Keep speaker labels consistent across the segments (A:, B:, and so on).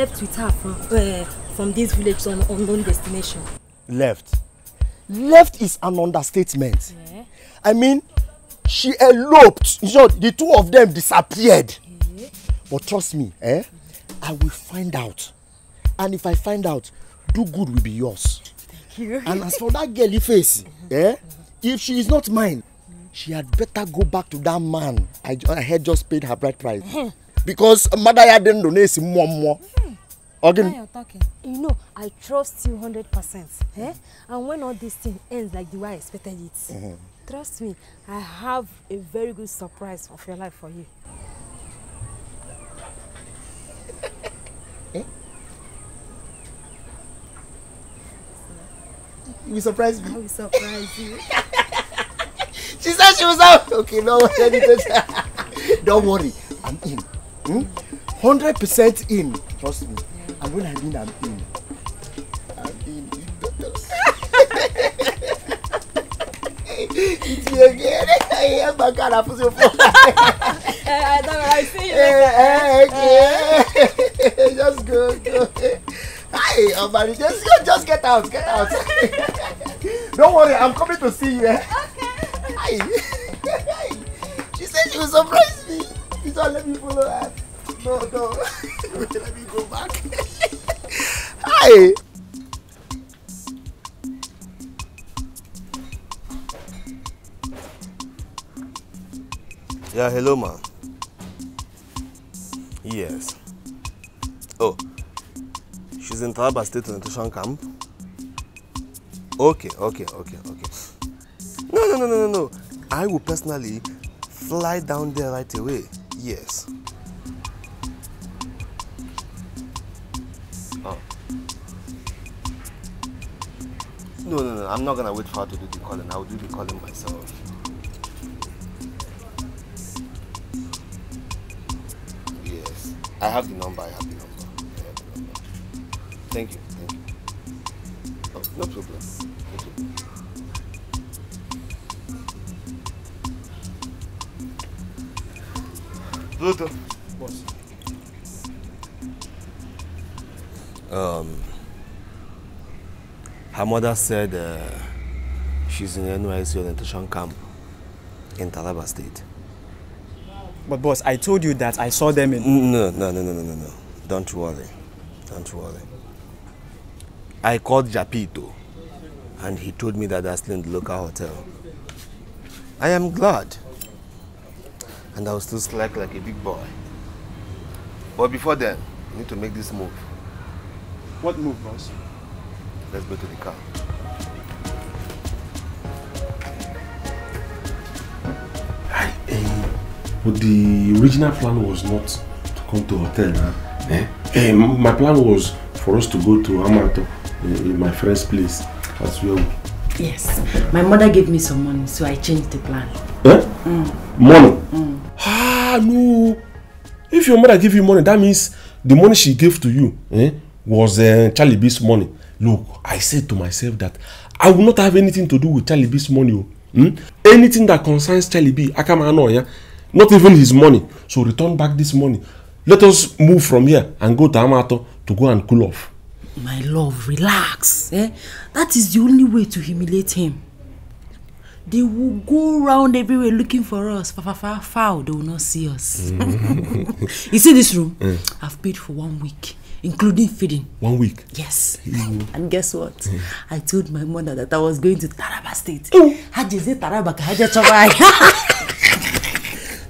A: left with her from, uh, from this village to an unknown destination.
B: Left? Left is an understatement. Yeah. I mean, she eloped. You know, the two of them disappeared. Yeah. But trust me, eh? I will find out. And if I find out, do good will be yours.
C: Thank you. And as for
B: that girly face, uh-huh. eh? If she is not mine, she had better go back to that man I, I had just paid her bride price. Uh-huh because mother ya dị ndụ na-esi mmụọ mmụọ ọ gịnị.
A: you know i trust you hundred percent eh? and when all this thing ends like the way i expected it mm -hmm. trust me i have a very good surprise of your life for you. eh?
B: You will surprise me. I will surprise you. she said she was out. Okay, no, don't worry. I'm in hundred percent in trust me and when i'm in i'm in i'm in it's your girl i hear my car i put your phone. I know, I see you. Hey, hey, okay. just go, go. Hi, Omari, just, just get out, get out. Don't worry, I'm coming to see you. Eh? Okay.
C: Hi. She said she will surprise me.
D: You don't let me follow that. No, no. let me go back.
B: Hi. Yeah, hello, ma. Yes. Oh, she's in Taraba State Nutrition Camp. Okay, okay, okay, okay. No, no, no, no, no, no. I will personally fly down there right away. years. Oh. No, no, no, I'm not gonna wait for her to do the calling. I will do the calling myself. Yes, I have the number, I have the number. Have the number. Thank you, thank you. Oh, no problem, no problem. Boss, Um, her mother said uh, she's in NYC orientation camp in Talaba State. But boss, I told you that I saw them in... No, no, no, no, no, no, no. Don't worry. Don't worry. I called Japito and he told me that still in the local hotel. I am glad and I'll still slack like a big boy. But before then, we need to make this move.
E: What move, boss?
B: Let's go to the car.
F: I, uh, eh, eh, but the original plan was not to come to hotel. Huh? Eh? Hey, eh, my plan was for us to go to Amato, uh, my friend's place, as well.
A: Yes, my mother gave me some money, so I changed the plan. Eh? Mm. Money? no
F: if your mother give you money that means the money she gave to you eh, was uh, charlie b's money look i said to myself that i will not have anything to do with charlie b's money o oh. hmm? anything that concerns charlie b Yeah, not even his money so return back this money let us move from here and go to amato to go and cool off.
A: my love relax eh? that is the only way to humiliate him they will go round everywhere looking for us. Far, far, far. foul, oh, they will not see us. Mm. you see this room? Mm. I've paid for one week, including feeding. One week? Yes. Mm. And guess what? Mm. I told my mother that I was going to Taraba State. Oh. Hajese Taraba ka haje chobai.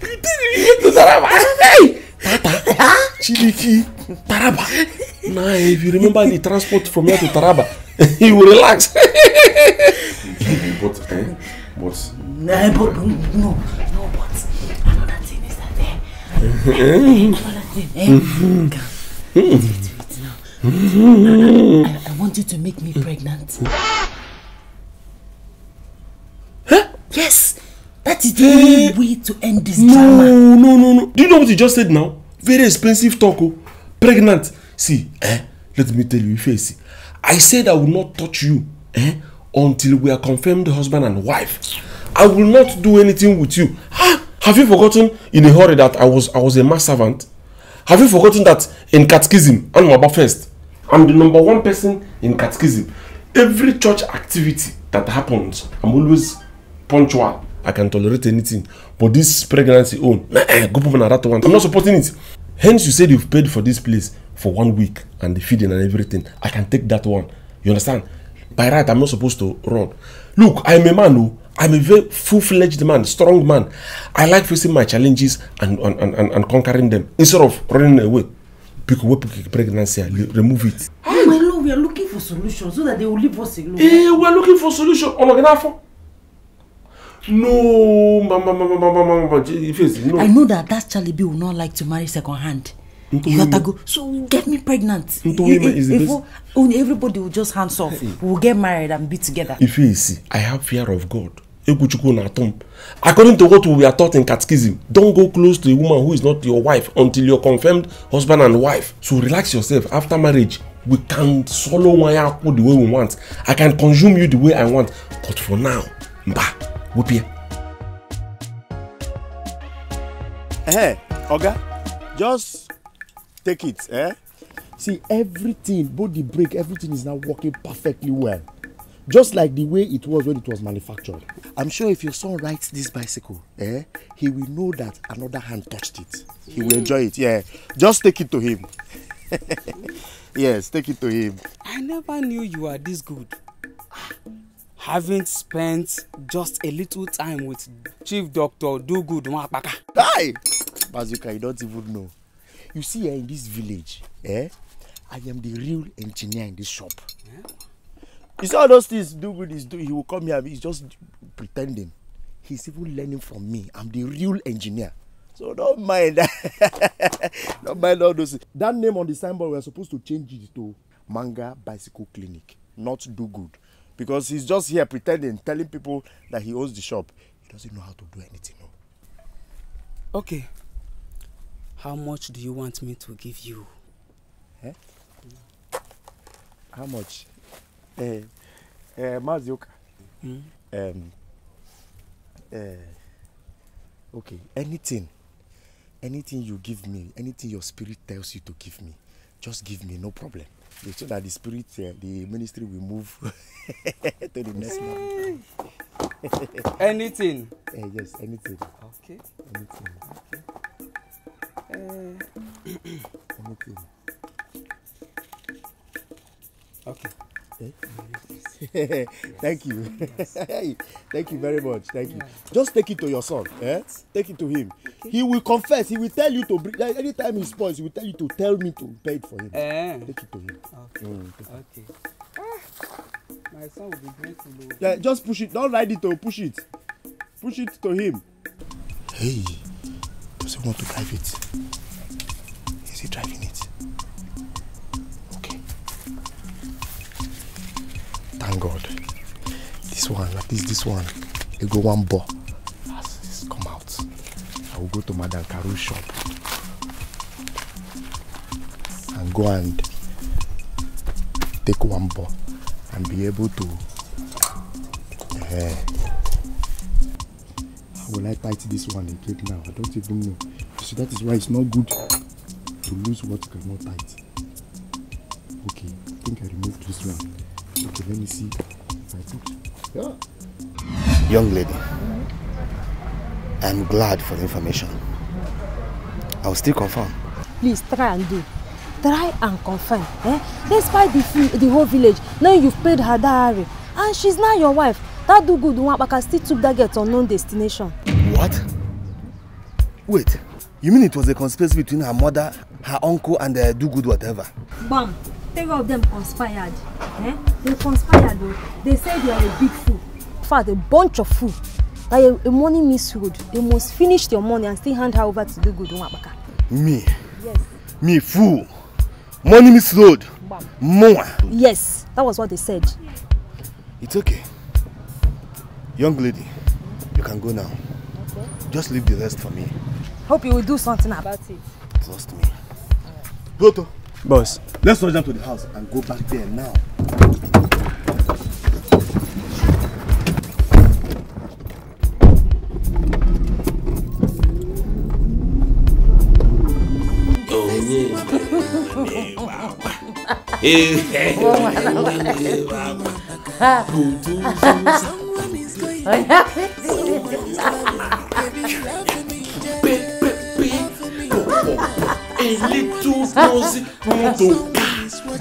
A: You didn't Taraba. Hey! Tata. Chiliki. Taraba. Nah, if you remember
F: the transport from here to Taraba, you will relax.
A: Eh, but. No, but no, no,
C: but another thing is that eh, eh, there. I, want you to make me pregnant.
A: Huh? Yes. That is the only way to end this no, drama. No, no, no, no. Do
F: you know what you just said now? Very expensive talk. Oh. Pregnant. See, eh? Let me tell you, Ifeanyi. I said I will not touch you. Eh? until we are confirmed husband and wife. I will not do anything with you. Ah, have you forgotten in a hurry that I was I was a mass servant? Have you forgotten that in catechism, I'm about first? I'm the number one person in catechism. Every church activity that happens, I'm always punctual. I can tolerate anything. But this pregnancy own, go put that one. I'm not supporting it. Hence, you said you've paid for this place for one week and the feeding and everything. I can take that one. You understand? by right i'm not supposed to run look i'm a man oh! i'm a very full-fledged man strong man i like facing my challenges and and and and, conquering them instead of running away Because wey pregnancy remove it. no
A: no no we are looking for solution so that they will leave us alone.
F: eh we are looking for solution ọ̀nàgànàfọ̀. no mama mama mama mama mama face no. i know
A: that that charlie b will not like to marry second hand you gotta go so get me pregnant if only everybody will just hands off we will get married and be together. ife
F: esi i have fear of god ekwuchukwu na atom according to what we are taught in catechism don go close to a woman who is not your wife until you confirmed husband and wife so relax yourself after marriage we can swallow wanya akpu the way we want i can consume you the way i want but for now mba wopia.
B: Hey, oga just Take it. Eh? See, everything, both the brake, everything is now working perfectly well. Just like the way it was when it was manufactured. I'm sure if your son rides this bicycle, eh, he will know that another hand touched it. He will mm. enjoy it. Yeah. Just take it to him. yes, take it to him. I
D: never knew you were this good. Having spent just a little time with Chief Doctor Do Good Mwapaka. Hi!
B: Bazuka, you don't even know you see here in this village eh i am the real engineer in this shop yeah. you see all those things do good is do he will come here he's just pretending he's even learning from me i'm the real engineer so don't mind don't mind all those things. that name on the signboard we are supposed to change it to manga bicycle clinic not do good because he's just here pretending telling people that he owns the shop he doesn't know how to do anything. okay
D: How much do you want me to give you? Eh?
B: How much? Eh, eh, Mazioka. Um, hmm? eh, okay, anything. Anything you give me, anything your spirit tells you to give me, just give me, no problem. So that the spirit, uh, the ministry will move to the next level. anything? Eh, yes, anything. Okay. Anything. Okay. I'm okay. Okay. Thank you. Thank you very much. Thank you. Just take it to your son. Eh? Take it to him. Okay. He will confess. He will tell you to bring. Like, anytime he spoils, he will tell you to tell me to pay it for him.
D: Eh. Take it to him. Okay. Mm, okay. Ah, my son will be grateful.
B: Yeah, just push it. Don't ride it. To push it. Push it to him. Hey. Does he want to drive it? Is he driving it? Okay. Thank God. This one, at least this one, you go one ball. As come out, I will go to Madame Caru's shop and go and take one ball and be able to. Uh, will I tight this one again now? I don't even know. So that is why it's not good to lose what you cannot tight. Okay, I think I removed this one. Okay, let me see if I put.
C: Yeah.
B: Young lady, mm-hmm. I'm glad for the information. I'll still confirm.
A: Please try and do. Try and confirm. Eh? Despite the, the whole village, now you've paid her diary, and she's not your wife that do good Nwapaka still took that girl to unknown destination. What?
B: Wait, you mean it was a conspiracy between her mother, her uncle, and the do good whatever?
A: Bam! Three of them conspired. Eh? They conspired though. They said you are a big fool. In fact, a bunch of fool. Like a, a money misruled. You must finish your money and still hand her over to do good Nwapaka. Me? Yes.
B: Me fool. Money misruled. Bam. More.
A: Yes, that was what they said. It's okay.
B: Young lady, you can go now. Okay. Just leave the rest for me.
A: Hope you will do something about it.
B: Trust me. Goto. Boss. Let's rush down to the house and go back there now.
A: Oh, yeah. Oh, A little
F: nosy moto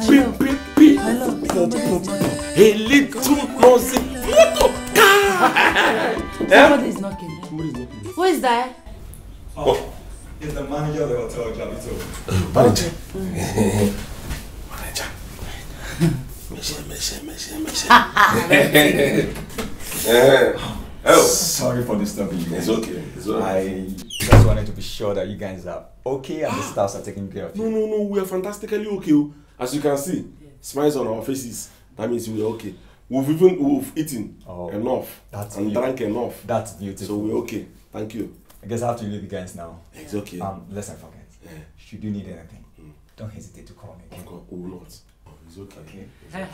F: beep beep beep pop pop a little nosy moto
A: Somebody is knocking.
G: Who is that? Oh, it's the manager of the hotel, Jabito.
C: Manager. Manager. Manager. Manager. Manager. Oh. oh. Sorry for disturbing you. It's okay. It's okay.
F: I just wanted to be sure that you guys are okay and the staffs are taking care of you. No, no, no. We are fantastically okay. Oh. As you can see, yeah. smiles on our faces. That means we are okay. We've even we've eaten oh, enough that's and beautiful.
G: drank enough. That's beautiful. So we're okay. Thank you. I guess I have to leave you guys now. It's okay. Um, let's not forget. Yeah. Should you need anything, mm. don't hesitate to call me. Okay? Of course, we will It's okay. okay.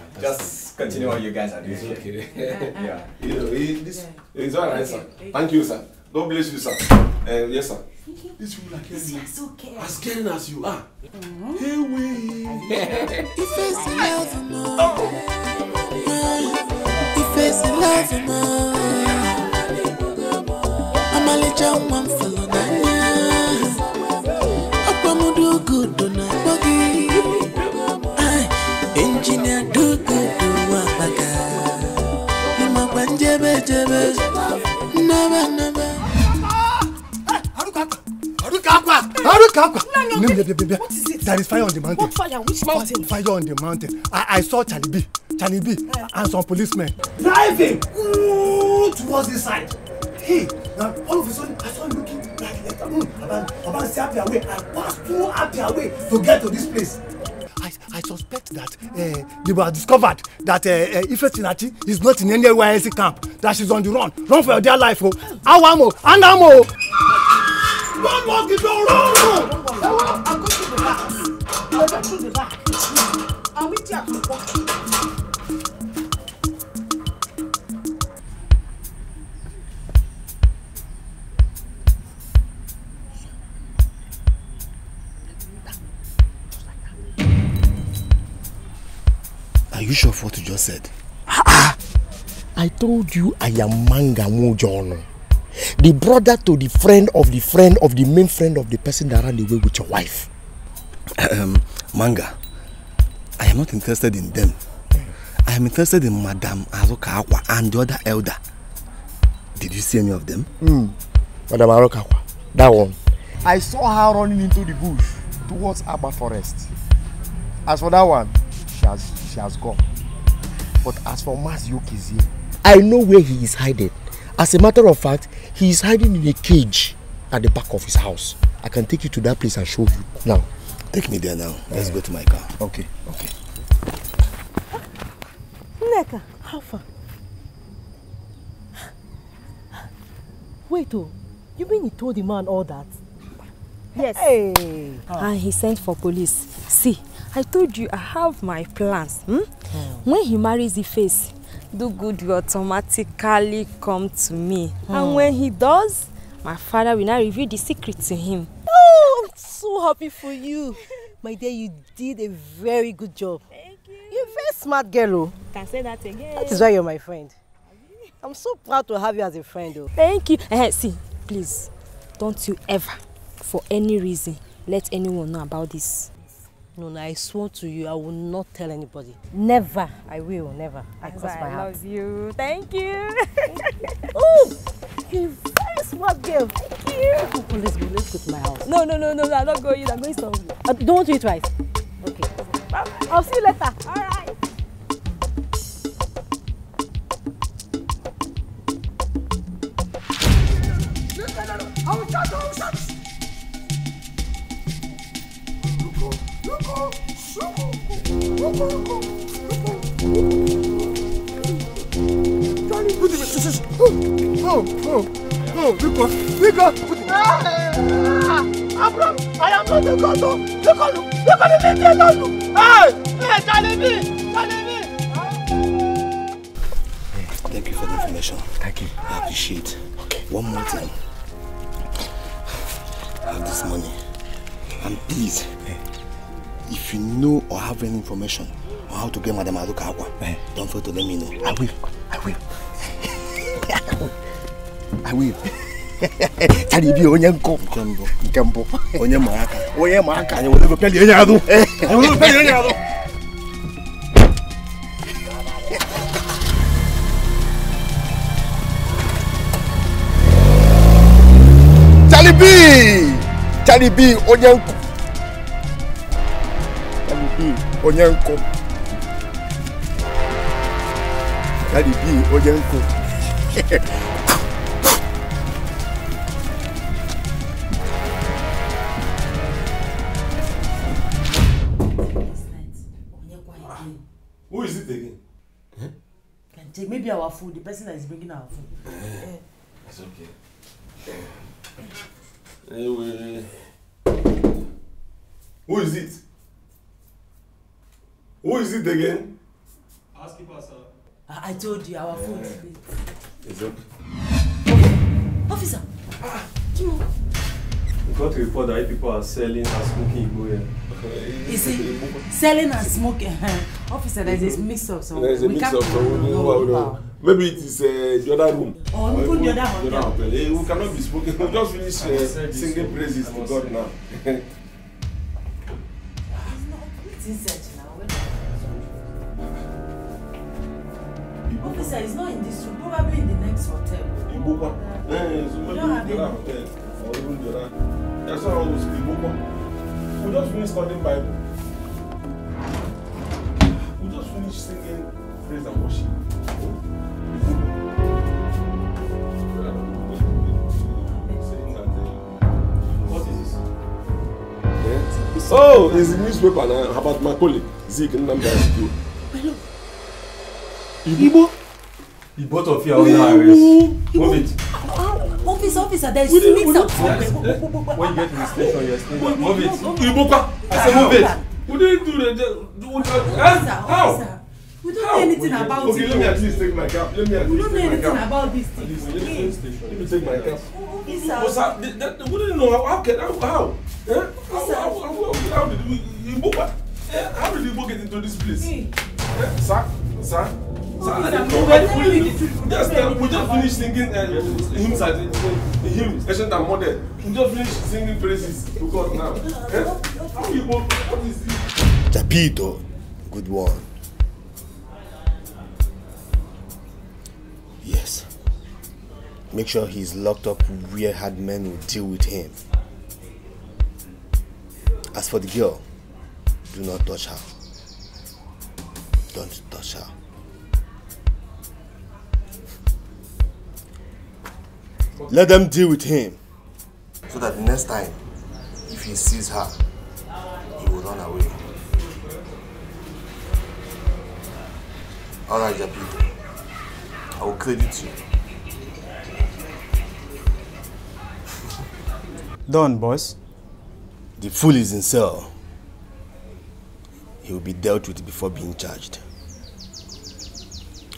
G: Just continue what you guys are doing. It's okay. yeah. You know, it, this yeah. is all right, okay. sir. Thank you, sir. God bless you, sir. Uh, yes, sir. These people are caring. As,
F: okay. as caring as you are. Mm-hmm. Hey, we. Oh. If it's love,
C: if it's love, I'm only just one
B: No, no, no, what is it? There is fire on the mountain. What fire? Which mountain? Fire on the mountain. I, I saw Charlie B. Charlie B. Uh. and some policemen. Driving
D: ooh, towards this side. Hey, now all of a sudden I saw him looking like a mm, about, about say happy away. I passed through happy away
B: to get to this place. I, I suspect that uh, they were discovered that uh, uh, Ife Tinati is not in any NYSC camp, that she's on the run. Run for your dear life, oh. Awamo, and Amo!
A: One more the door. No, no, no. I'm going to the back. I'll go to the back.
D: I'll meet you at the back.
B: Are you sure of what you just said? Ah, ah. I told you I am Manga Mojono. The brother to the friend of the friend of the main friend of the person that ran away with your wife. Um, Manga, I am not interested in them. I am interested in Madam Aroka and the other elder. Did you see any of them? Mm. Madam Aroka that one. I saw her running into the bush towards Aba Forest. As for that one, she has, she has gone. But as for Mas Yokizie, I know where he is hiding. As a matter of fact, he is hiding in a cage at the back of his house. I can take you to that place and show you now. Take me there now. Let's yeah. go to my car. Okay, okay.
A: Nneka, how far? Wait, oh, you mean he told the man all that? Yes. Hey. Ah. And he sent for police. See, I told you I have my plans. Hmm? Hmm. When he marries the face, do good will automatically come to me. Hmm. And when he does, my father will now reveal the secret to him. Oh, I'm so happy for you. My dear, you did a very good job. Thank you. You're a very smart girl. Oh. Can say that again. That is why you're my friend. I'm so proud to have you as a friend. Oh. Thank you. Uh, see, please, don't you ever, for any reason, let anyone know about this. No, no, I swear to you, I will not tell anybody. Never. I will, never. I cross my heart. I love you. Thank you. oh, you very smart girl. Thank you. Oh, let's go, let's go to my house. No, no, no, no, I'm not going. I'm going somewhere. Uh, don't do it twice. Okay. Bye-bye. I'll see you later. All right. No, no, no, no. I will shut up.
C: Oh, oh, oh, Rico, Rico! Abram, I am not the God the God the God of the God of Hey,
D: hey, Jalebi, Jalebi. Thank you for the
B: information. Thank you. I appreciate. Okay. One more thing. have this money. And please, hey if you know or have any information on how to get Madam Aruka Akwa, eh? don't fail to let me know. I will. I will. I will. Tani bi onye nko nkembo nkembo onye ma aka onye ma aka anyị wele peli onye azụ anyị wele peli onye azụ Charlie B Charlie B onye nko onye nkụ Daddy B onye nkụ
A: Who is it again? Eh? Can take maybe our food, the person that is bringing our food. Uh,
F: it's okay. Anyway. Who is it? Who is it again?
A: Housekeeper, sir. I, I told you our yeah. food is late. It's okay. Officer! Ah. Kimo. We got to report that people are selling and smoking Igbo here. You see, selling and smoking. Eh, officer, there's mm mm-hmm. a mix-up somewhere. There's a mix-up somewhere. No,
F: no, no. Maybe it is uh, the other room. Or oh, even the other hotel. The other eh, Hey, we cannot be smoking. We just finish uh, singing praises to God now. He's
A: not inside. Officer is not in this room, probably in the next hotel.
F: In Bokwa. Yes, eh, maybe in the hotel or even the other. That's why I was in We just finished studying Bible. We just finished singing praise and worship. Eh? Oh, it's a newspaper now about my colleague, Zeke Nnamdi Igbo. Igbo? The both of you are under arrest. Move it. Ah,
A: officer, officer, there is mix up.
F: When you get to the station, you're still Move it. Ibuka, I say move it. We don't do
D: the.
F: that. How? We don't know anything about it. Okay, let me at least take my cap. Let me at least take my cap. We don't know anything about this thing. Let me take my cap. Officer. We don't know eh? how. How? How did we? Ibuka. Eh? How did Ibuka get into this place? Eh, sir, sir. we just finished singing uh, hymns at the hymn, ancient and modern. We just finished singing praises to God now. Eh? How you want,
B: what is it? Tapito, good one. Yes. Make sure he's locked up where hard men will deal with him. As for the girl, do not touch her. Don't touch her. Let them deal with him. So that next time, if he sees her, he will run away. Alright, Jabi. I will credit you. Done, boss. The fool is in cell. He will be dealt with before being charged.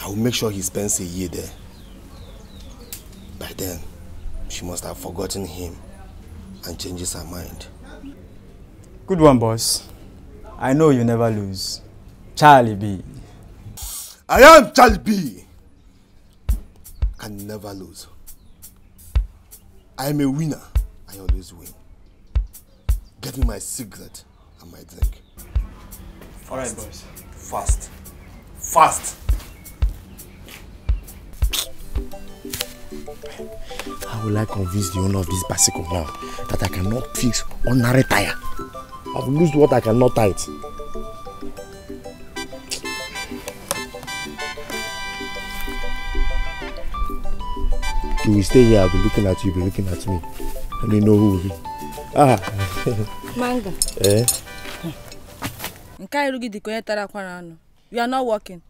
B: I will make sure he spends a year there. By then, she must have forgotten him and changes her mind.
E: Good one, boss. I know you never lose.
B: Charlie B. I am Charlie B. Can never lose. I am a winner. I always win. Get me my cigarette and my drink. All right, boys. Fast. Fast. Fast. How will I convince the owner of this bicycle now that I cannot fix i will I've lost what I cannot tie it. You will stay here, I'll be looking at you, be looking at me. I don't know who will be. Ah! Manga. Eh?
A: Nke iru gị dị tara akwara anụ. You are not working.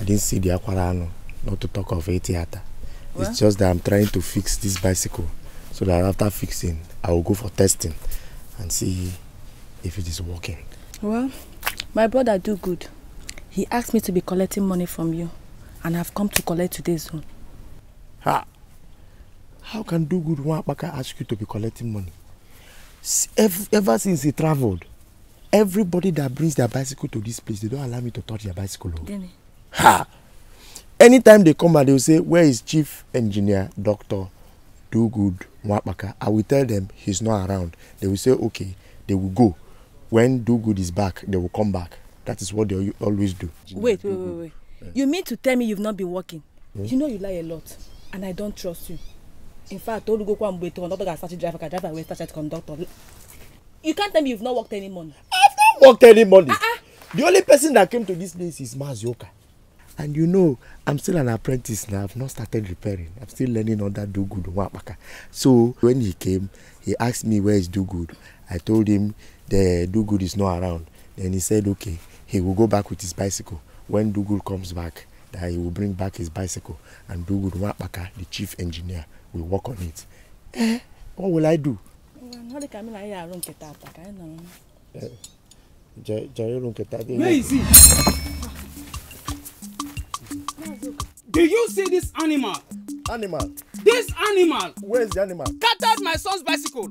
B: I didn't see the akwara anụ, not to talk of a theater. What? It's just that I'm trying to fix this bicycle so that after fixing, I will go for testing and see if it is working.
A: Well, my brother do good. He asked me to be collecting money from you and I've come to collect today, own.
B: Ha! How can do good Wapaka ask you to be collecting money? Ever since he traveled, everybody that brings their bicycle to this place, they don't allow me to touch their bicycle.
C: Dene. Oh.
B: Ha! anytime they come out they will say where is chief engineer doctor do good Mwapaka. I will tell them he's not around. They will say, okay, they will go. When Do Good is back, they will come back. That is what they always do. Wait, wait,
A: wait, wait. Yeah. You mean to tell me you've not been working? Hmm? You know you lie a lot, and I don't trust you. In fact, Olugo Kwambwe to another guy started driver, can driver away, started conductor. You can't tell me you've not worked any money. I've
B: not worked any money. Uh -uh. The only person that came to this place is Mazioka. And you know, I'm still an apprentice now. I've not started repairing. I'm still learning under Do Good Wapaka. So when he came, he asked me where is Do Good. I told him the Do Good is not around. Then he said, okay, he will go back with his bicycle. When Do Good comes back, that he will bring back his bicycle and Do Good Wapaka, the chief engineer, will work on it. Eh, what will I do? Where is
A: he? Do
D: you see this animal? Animal. This animal. Where is the animal? Scattered my son's bicycle.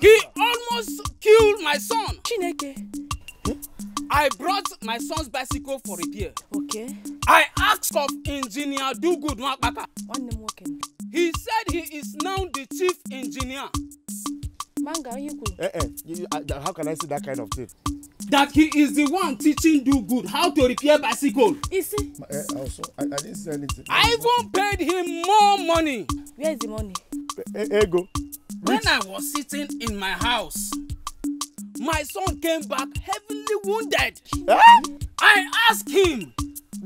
D: He almost killed my son. Chineke. Hmm? I brought my son's bicycle for repair. Okay. I asked of engineer Dugood Nwakpaka. He said he is now the chief engineer.
A: Manga, are Eh,
D: eh. uh, how can I see that kind of thing? That he is the one teaching do good how to repair bicycle. Is he?
B: Eh, also, I, I didn't say anything.
A: I even
D: paid him more money. Where is the money? Eh, eh, eh go. When I was sitting in my house, my son came back heavily wounded. I asked him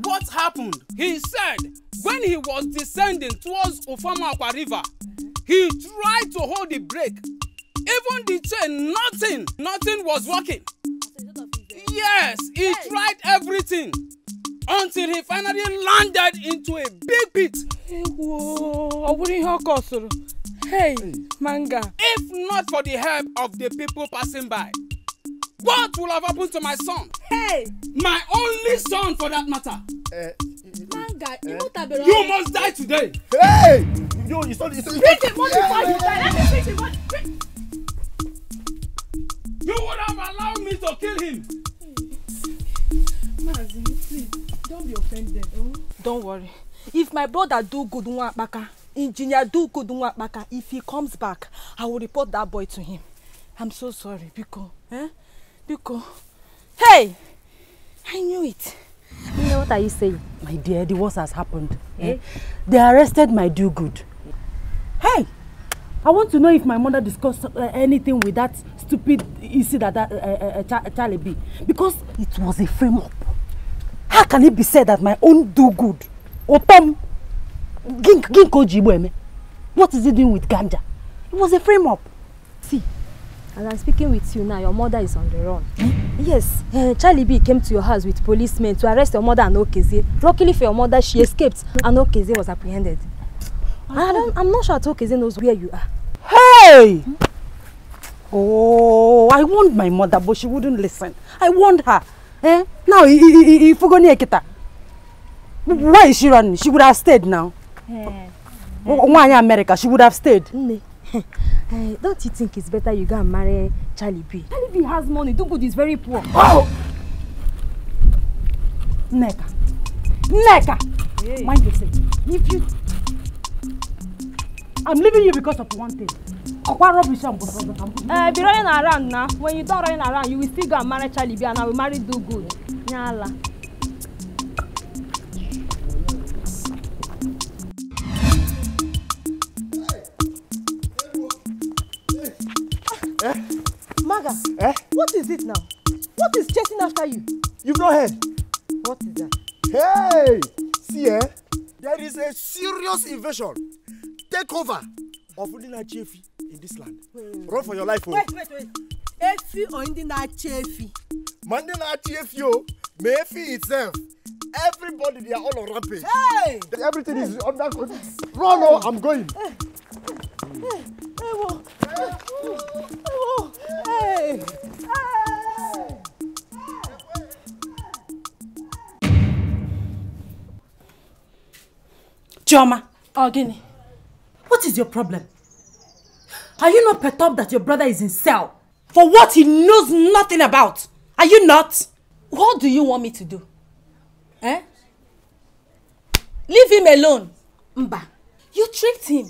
D: what happened. He said when he was descending towards Ofamaakwa River, he tried to hold the brake Even the chain, nothing, nothing was working. Yes, he yes. tried everything until he finally landed into a big pit. Hey, manga. If not for the help of the people passing by, what will have happened to my son? Hey! My only son for that matter. Uh,
A: manga, uh,
D: you must die today. Hey! Yo, you saw this. Beat him, what before you die?
C: Let me beat him.
D: You would have allowed me to kill him.
A: Mazi, please, don't be offended. Oh? Don't worry. If my brother do good Nwakpaka, engineer do good Nwakpaka, if he comes back, I will report that boy to him. I'm so sorry, Biko. Eh? Biko. Hey! I knew it. You know what are you saying? My dear, the worst has happened. Eh? eh? They arrested my do good. Hey! I want to know if my mother discussed uh, anything with that stupid you see that, that uh, uh, uh Ch Charlie be because it was a frame up. How can it be said that my own do good? Otom Gink Ginko Jibueme. What is he doing with ganja? It was a frame up. See, as I'm speaking with you now, your mother is on the run. Hmm? Yes, uh, Charlie B came to your house with policemen to arrest your mother and Okeze. Luckily for your mother, she escaped and Okeze was apprehended. I don't, I'm not sure Okeze knows where you are. Hey! Hmm? Oh, I warned my mother, but she wouldn't listen. I warned her. Eh? Now, if you go near Kita, Why is she running? She would have stayed now. Yeah. Why America? She would have stayed. Eh, don't you think it's better you go and marry Charlie B? Charlie B has money. Dugud is very poor. Oh! Neka. Neka! Hey. Mind yourself. If you... I'm leaving you because of one thing. What rubbish I'm uh, Be running around now. When you don't running around, you will still go and marry Charlie B and I will marry do good. Nyala. Eh? Maga, eh? what is it now? What is chasing after you?
B: You've not heard. What is that? Hey! See, eh? There is a serious invasion, takeover of Ulina Chefi in this land run for your life oh! wait wait wait efi or Indi na-achị efi. ma ndị na-achị efi oh! Me efi itself everybody they are all on rampage. Hey! everything hey. is under control
A: run oh! i'm going.
C: ewo ewo hey.
A: Chioma, oh, Gini, what is your problem? Are you not perturbed that your brother is in cell? For what he knows nothing about? Are you not? What do you want me to do? Eh? Leave him alone. Mba, you tricked him.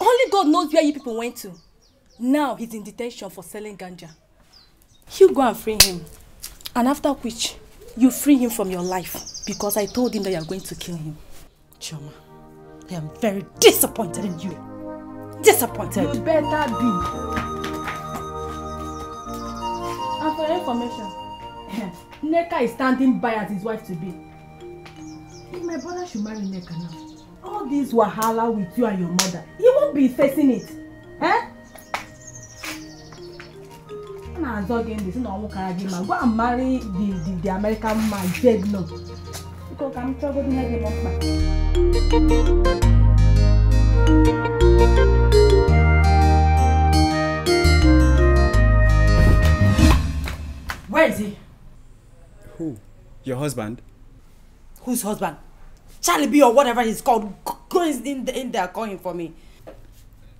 A: Only God knows where you people went to. Now he's in detention for selling ganja. You go and free him. And after which, you free him from your life. Because I told him that you are going to kill him. Choma, I am very disappointed in you. disappointed. You better be. And for your information, Neka is standing by as his wife-to-be. If my brother should marry Neka now, all this wahala with you and your mother, he won't be facing it. Eh? a na-azọ gị ndị si na ọnwụ kara gị ma gwa m marry the the the American man beg no biko ka m chọgodo ihe dị Where is he? Who?
E: Your husband?
A: Whose husband? Charlie B or whatever he's called. Go in, the, in there calling for me.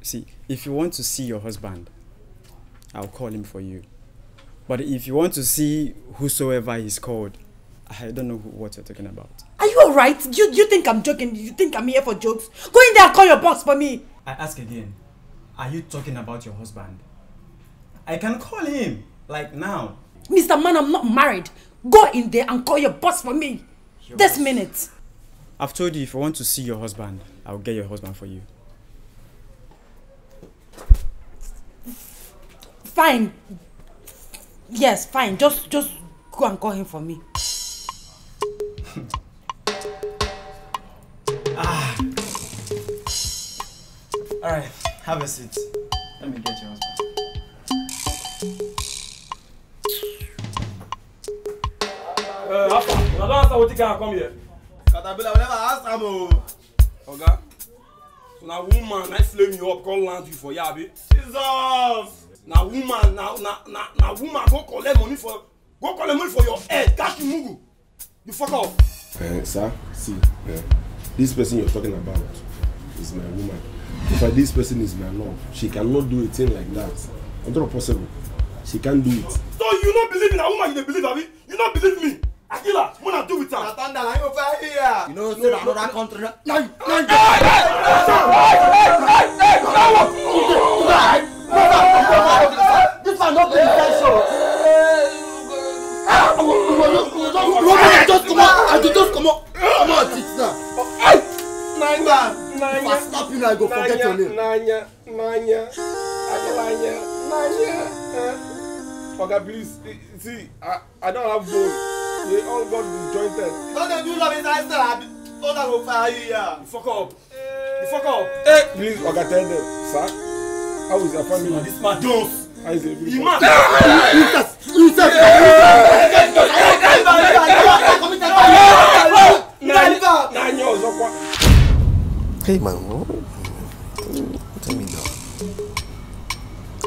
E: See, if you want to see your husband, I'll call him for you. But if you want to see whosoever he's called, I don't know who, what you're talking about.
A: Are you alright? You, you think I'm joking? You think I'm here for jokes? Go in there and call your boss for me.
E: I ask again, are you talking about your husband?
A: I can call him, like now. Mr. Man, I'm not married. Go in there and call your boss for me. Your this boss. minute.
E: I've told you if I want to see your husband, I'll get your husband for you.
A: Fine. Yes, fine. Just just go and call him for me.
E: All right, have a seat. Let me get your husband.
F: Uh, Alpha, I don't answer what you can come here. Caterpillar will never ask am o. Oh. Oga, so now woman na flame you up come land you for here abi?
C: Jesus!
F: Now woman now now now na woman go collect money for go collect money for your head catch you mugu. You fuck up. Uh, sir, see, uh, this person you're talking about is my woman if I, this person is my love she cannot do a thing like that it's not possible she can't do it. so
B: you don't believe in A woman you don't believe abi you don't believe me akila mo na doing with her. na thunder na him go fire here. you know say na another country na. na you na you. hey hey
C: hey hey hey na what you dey do that. no no no no this one no be the first show.
B: Roman just comot, I just comot, comot, it's now. Hey, my
C: man. Nanya. If I slap you now, I go Nanya. forget your name.
B: Nanya, Nanya,
F: Adelanya, Nanya. Oga, uh, please, see, I, I don't have bone. They all got disjointed. Don't they do love inside still? I thought I will fire you here. Fuck up. You fuck up. Hey, please, Oga, tell them, sir. How is your family? This my dose. How is your family? Iman. Incest. Incest. Incest. Nanya, Nanya, Nanya, Nanya,
B: pay my room? Tell me no.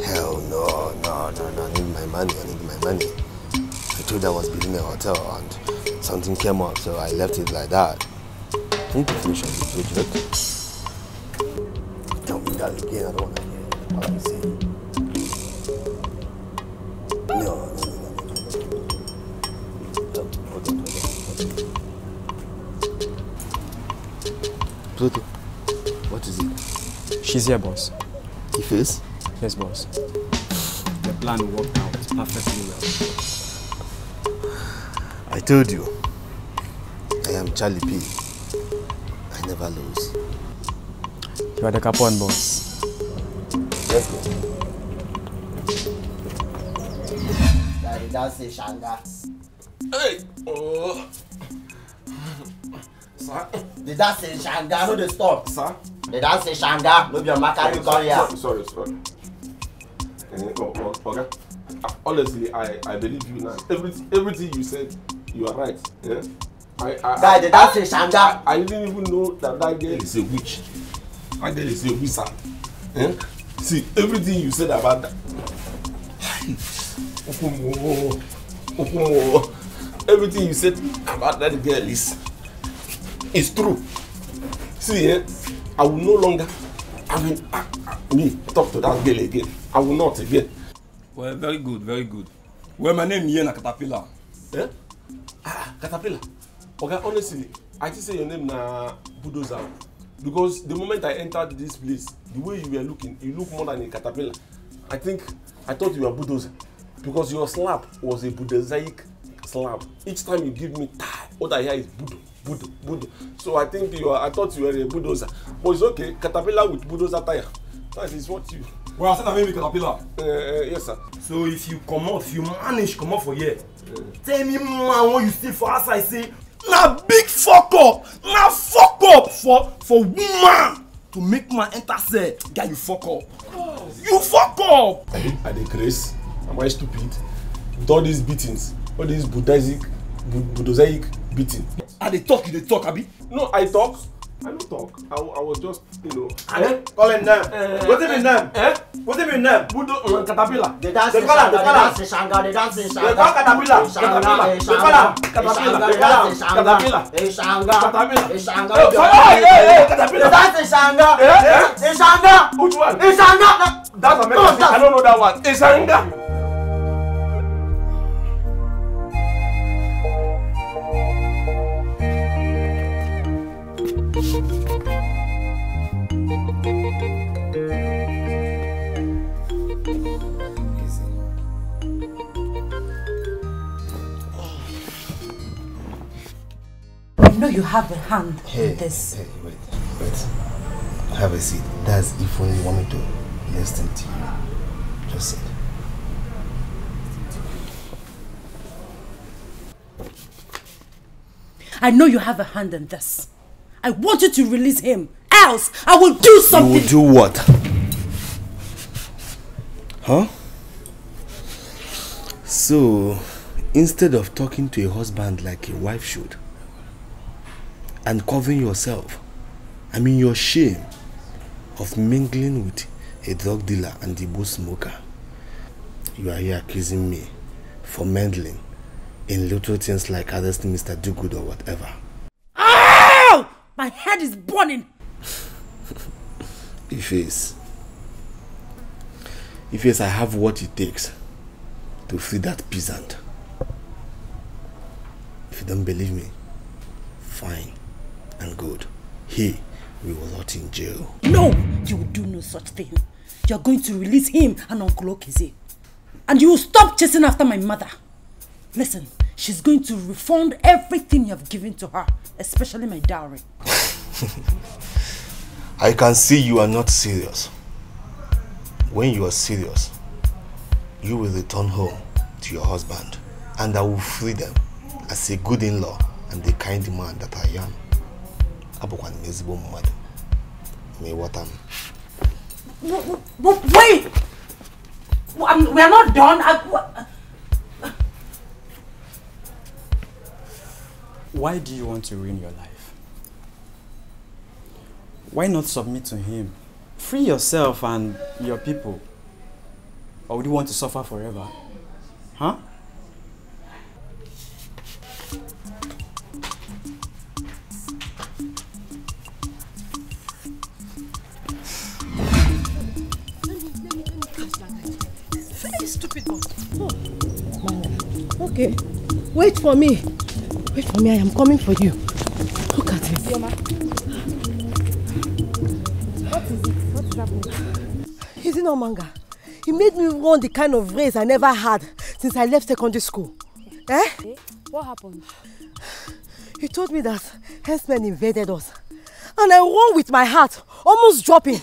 B: Hell no, no, no, no. I need my money. I need my money. I told I was building a hotel and something came up, so I left it like that. I need to finish on this project. Tell me that again. I don't want to hear what I'm saying.
E: What is it? She's here, boss. He is? Yes, boss.
B: The plan worked out perfectly well. I told you. I am Charlie P. I never lose.
E: You are the Capone, boss. Let's go.
B: Daddy, that's it, Shanga. Hey! Oh! Sir? Did that say Shanga? Who the stop. Sir? They don't say shanga, no be on Makari Korea.
F: Sorry, sorry. okay. honestly, I, I believe you now. Everything, everything you said, you are right. Yeah? I, I, Guy, they don't say shanga. I, I didn't even know that that girl is a witch. That girl is a wizard. Yeah? See, everything you said about that. everything you said about that girl is, is true. See, yeah? I will no longer I mean I, I, me talk to that girl again. I will not again. Well, very good, very good. Well, my name here na Caterpillar. Eh? Ah, ah, Caterpillar. Okay, honestly, I just say your name na Bulldozer. Because the moment I entered this place, the way you were looking, you look more than a caterpillar. I think I thought you were bulldozer because your slap was a bulldozeric slap. Each time you give me what I hear is bulldozer bulldo bulldo so i think you are i thought you were a bulldozer but it's okay caterpillar with bulldozer tyre. that is what you. well i said i mean be caterpillar. Uh, uh, yes sir. so if you comot you manage comot for here uh, tell me man when you see for outside say na big fok up na fok up for for woman to make man enter cell guy you fok up oh. you fok up. Eh, i dey craze am i stupid with all these beatings all these buddhistic buddhistic beating. I dey talk, you they talk, Abi. No, I talk. I don't talk. I, I was just, you know. Eh? eh? Call eh, eh, him name. Eh, What's his name? Eh? What's his name? Budo um,
B: Caterpillar. They dance in Shanga. They dance in Shanga. They dance in Shanga. They call Caterpillar. Caterpillar. They call Caterpillar. They call Caterpillar.
G: They Shanga. Caterpillar. They Shanga. Hey, hey, hey, Caterpillar. They dance in Shanga. Eh? Eh? In Shanga. Which one? In Shanga. That's American. No, that's... I don't know that
D: one.
C: In Shanga.
A: you have a hand hey, in this. Hey, wait, wait.
B: Have a seat. That's if only you want me to listen to you. Just sit.
A: I know you have a hand in this. I want you to release him. Else, I will do something. You will do what?
B: Huh? So, instead of talking to a husband like a wife should, and covering yourself. I mean, your shame of mingling with a drug dealer and the booze smoker. You are here accusing me for meddling in little things like arresting Mr. Dugood or whatever.
A: Oh! My head is burning!
B: if it's. If yes, I have what it takes to free that peasant. If you don't believe me, fine and good. He we will not in jail.
A: No, you will do no such thing. You are going to release him and Uncle Okize. And you will stop chasing after my mother. Listen, she's going to refund everything you have given to her, especially my dowry.
B: I can see you are not serious. When you are serious, you will return home to your husband and I will free them as a good in-law and the kind man that I am. abụkwa ezigbo mmadụ ma ịghọta
A: m wait um, we are not done
E: why do you want to ruin your life why not submit to him free yourself and your people or would you want to suffer forever huh
A: Okay. Wait for me. Wait for me. I am coming for you. Look at it. Yoma. What is it? What is happening? Is it not manga? He made me run the kind of race I never had since I left secondary school. Eh? Okay. Eh? What happened? He told me that henchmen invaded us. And I won with my heart, almost dropping.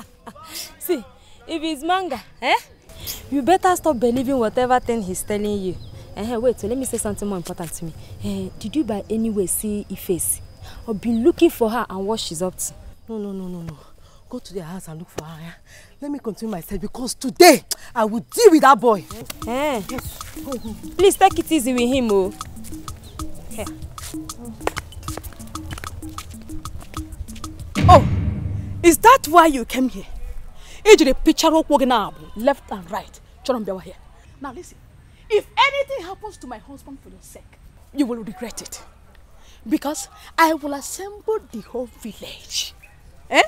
A: See, if it's manga, eh? You better stop believing whatever thing he's telling you. Uh, wait, So let me say something more important to me. Uh, did you by any way see Ife's? I've been looking for her and what she's up to. No, no, no, no, no. Go to their house and look for her. Yeah? Let me continue myself because today I will deal with that boy. Yes. Eh. Yes. Please take it easy with him, oh. Here. Oh, is that why you came here? Ejiri picture of walking up, left and right. Choron here. Now listen. If anything happens to my husband for your sake, you will regret it. Because I will assemble the whole village. Eh?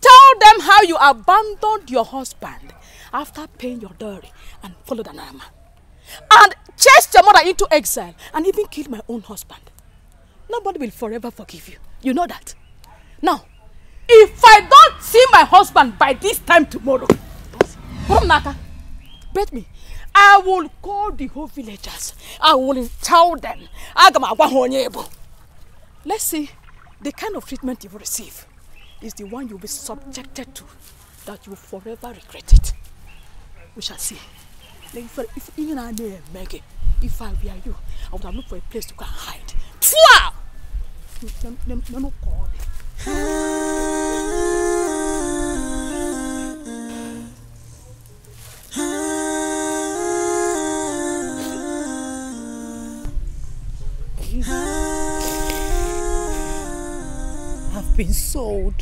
A: Tell them how you abandoned your husband after paying your dowry and followed an man. And chased your mother into exile and even killed my own husband. Nobody will forever forgive you. You know that. Now, if I don't see my husband by this time tomorrow, Brumnaka, bet me I will call the whole villagers. I will tell them. Let's see the kind of treatment you will receive is the one you'll be subjected to that you will forever regret it. We shall see. Like if, if, even I may if I were you, I would have looked for a place to go and hide. Pfwa! No, no, no, no,
H: have been sold.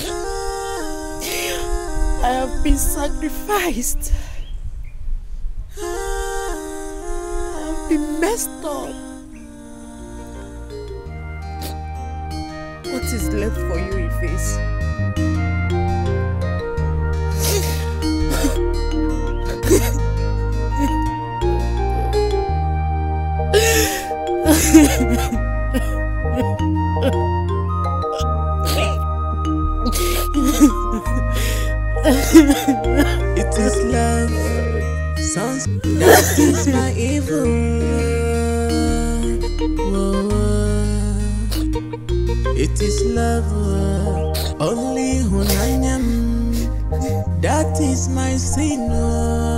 H: I have been sacrificed. I have been messed up. What is left for you, in
C: Ha it is
H: love. Sounds that is my evil. It is love. Only when I'm that That is my
C: sin.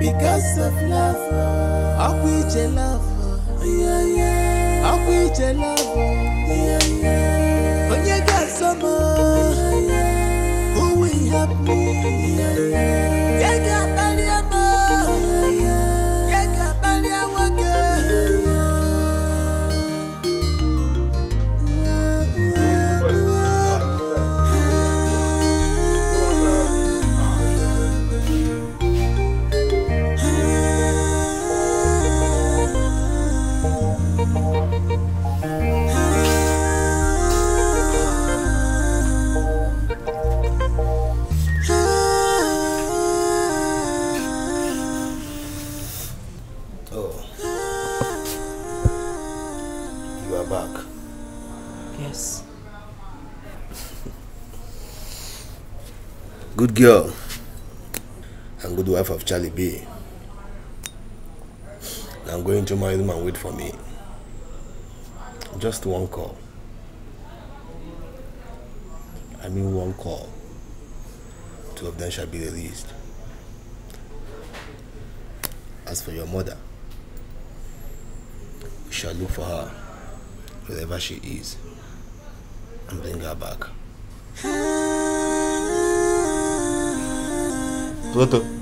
D: because of love. Akwije love. Yeah, yeah. Akwije
C: love. Yeah, yeah. Onye gasoma. Yeah, yeah. Who will help me? Yeah, yeah. yeah, yeah.
B: good girl and good wife of Charlie B. I'm going to my room and wait for me. Just one call. I mean one call. Two of them shall be released. As for your mother, we shall look for her wherever she is and bring her back. 不得。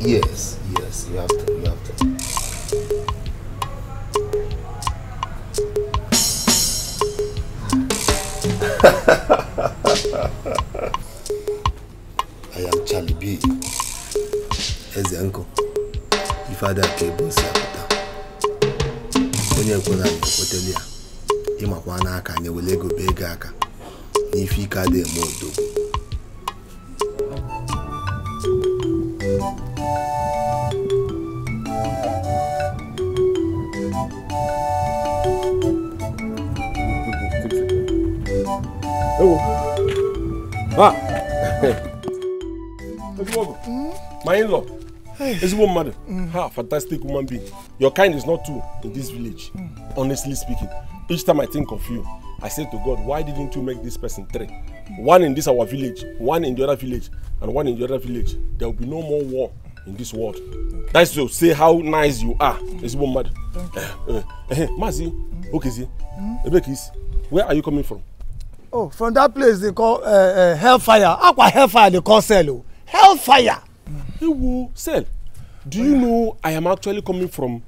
B: Yes, yes, you have to, you have to. I am Charlie B. Eze uncle. If I that apụta. Onye kwere anyị ekwetela ya. Ịmakwa n'aka anyị were ego bee ego aka. N'ife ike adịghị eme odogwu.
F: my in-law is a woman mother. Mm. Ha, fantastic woman being. Your kind is not two in this village. Mm. Honestly speaking, each time I think of you, I say to God, why didn't you make this person three? One in this our village, one in the other village, and one in the other village. There will be no more war in this world. Okay. That's to say how nice you are. Mm. Is woman mother. Thank you. Mazi, mm. Okezi, mm. Ebekis, where are you coming from?
B: Oh, from that place they call uh, uh, hellfire. Aqua hellfire they call cell. Oh. Hellfire ẹ wo cell do you know i am actually coming
F: from